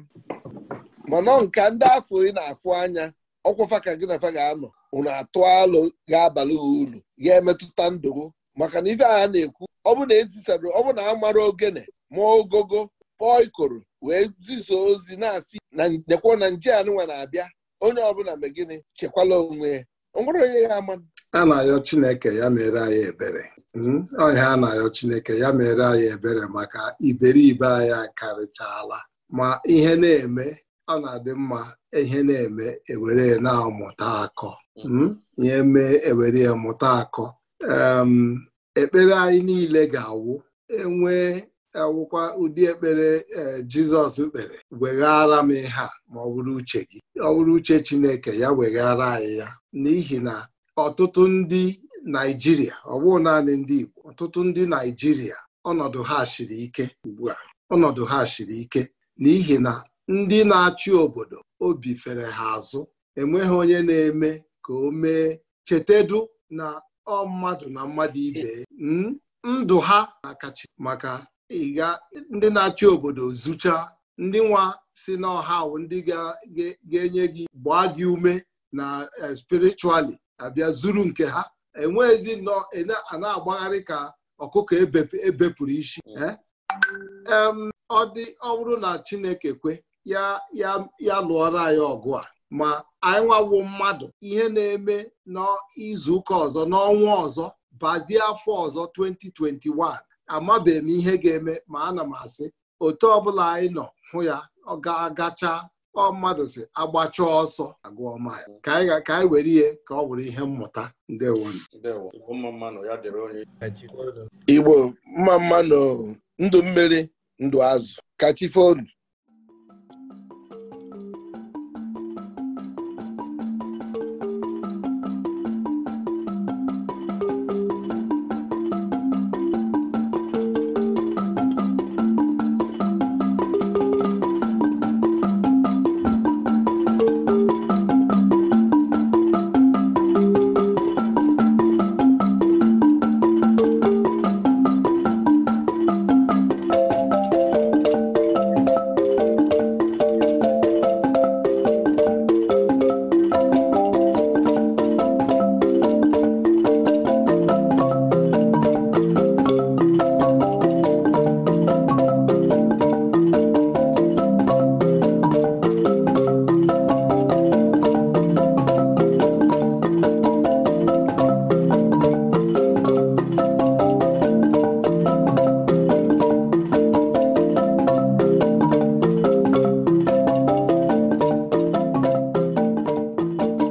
mana nke ndị afọ ị na-afụ anya ọkwụfa ka gị na fa ga-anọ unu atụ alụ ga-abalị uru ya emetụta ndụgo maka na ife agha na-ekwu ọ bụ na ezisara ọ bụ na amara ogene ma ogogo kpọọ ikoro wee zizo ozi na-asị na nekwo na nje anụnwa na-abịa onye ọbụla mgbe gịnị chekwala onwe ya onye ya ama a na-ayọ Chineke ya mere anyị ebere hmm? ọhịa a na-ayọ Chineke ya mere anyị ebere maka iberibe anyị karịchaala ma ihe na-eme ọ na-adị mma ihe na-eme ewere na-amụta akọ mm. hmm? ihe mee ewere ya mụta akọ ekpere anyị niile ga-awụ enwee awụkwa ụdị ekpere e, Jizọs kpere weghara m ihe a ma ọ bụrụ uche gị ọ bụrụ uche Chineke ya weghara anyị ya n'ihi na ọtụtụ ndị Naijiria ọ bụghị naanị ndị Igbo ọtụtụ ndị Naijiria ọnọdụ ha shiri ike ugbu a ọnọdụ ha shiri ike n'ihi na ndị na-achị obodo obi fere ha azụ enweghị onye na-eme ka o mee chetedu na ọ mmadụ na mmadụ ibe hmm? ndụ ha na-akachi maka ịga ndị na-achị obodo zụcha ndị nwa si n'ọha ndị ga-enye gị gbaa gị ume na eh, spirichuali abịa zuru nke ha enweghịzi nọ ana e na-agbagharị ka ọkụkọ ebepụrụ e isi mm. eh? ọ dị ọ na Chineke kwe ya lụọrọ anyị ọgụ a ma anyị nwawo mmadụ ihe na-eme n'izuụka ọzọ n'ọnwa ọzọ bazie afọ ọzọ 2021 amabeghị m ihe ga-eme ma ana m asị otu ọbụla anyị nọ hụ ya ọ ga-agacha ọ mmadụ si agbacha ọsọ agụọ maịl ka anyị were ihe ka ọ wụrụ ihe mmụta ndewo igbo mma mmanụ ndụ mmiri ndụ azụ kachifonu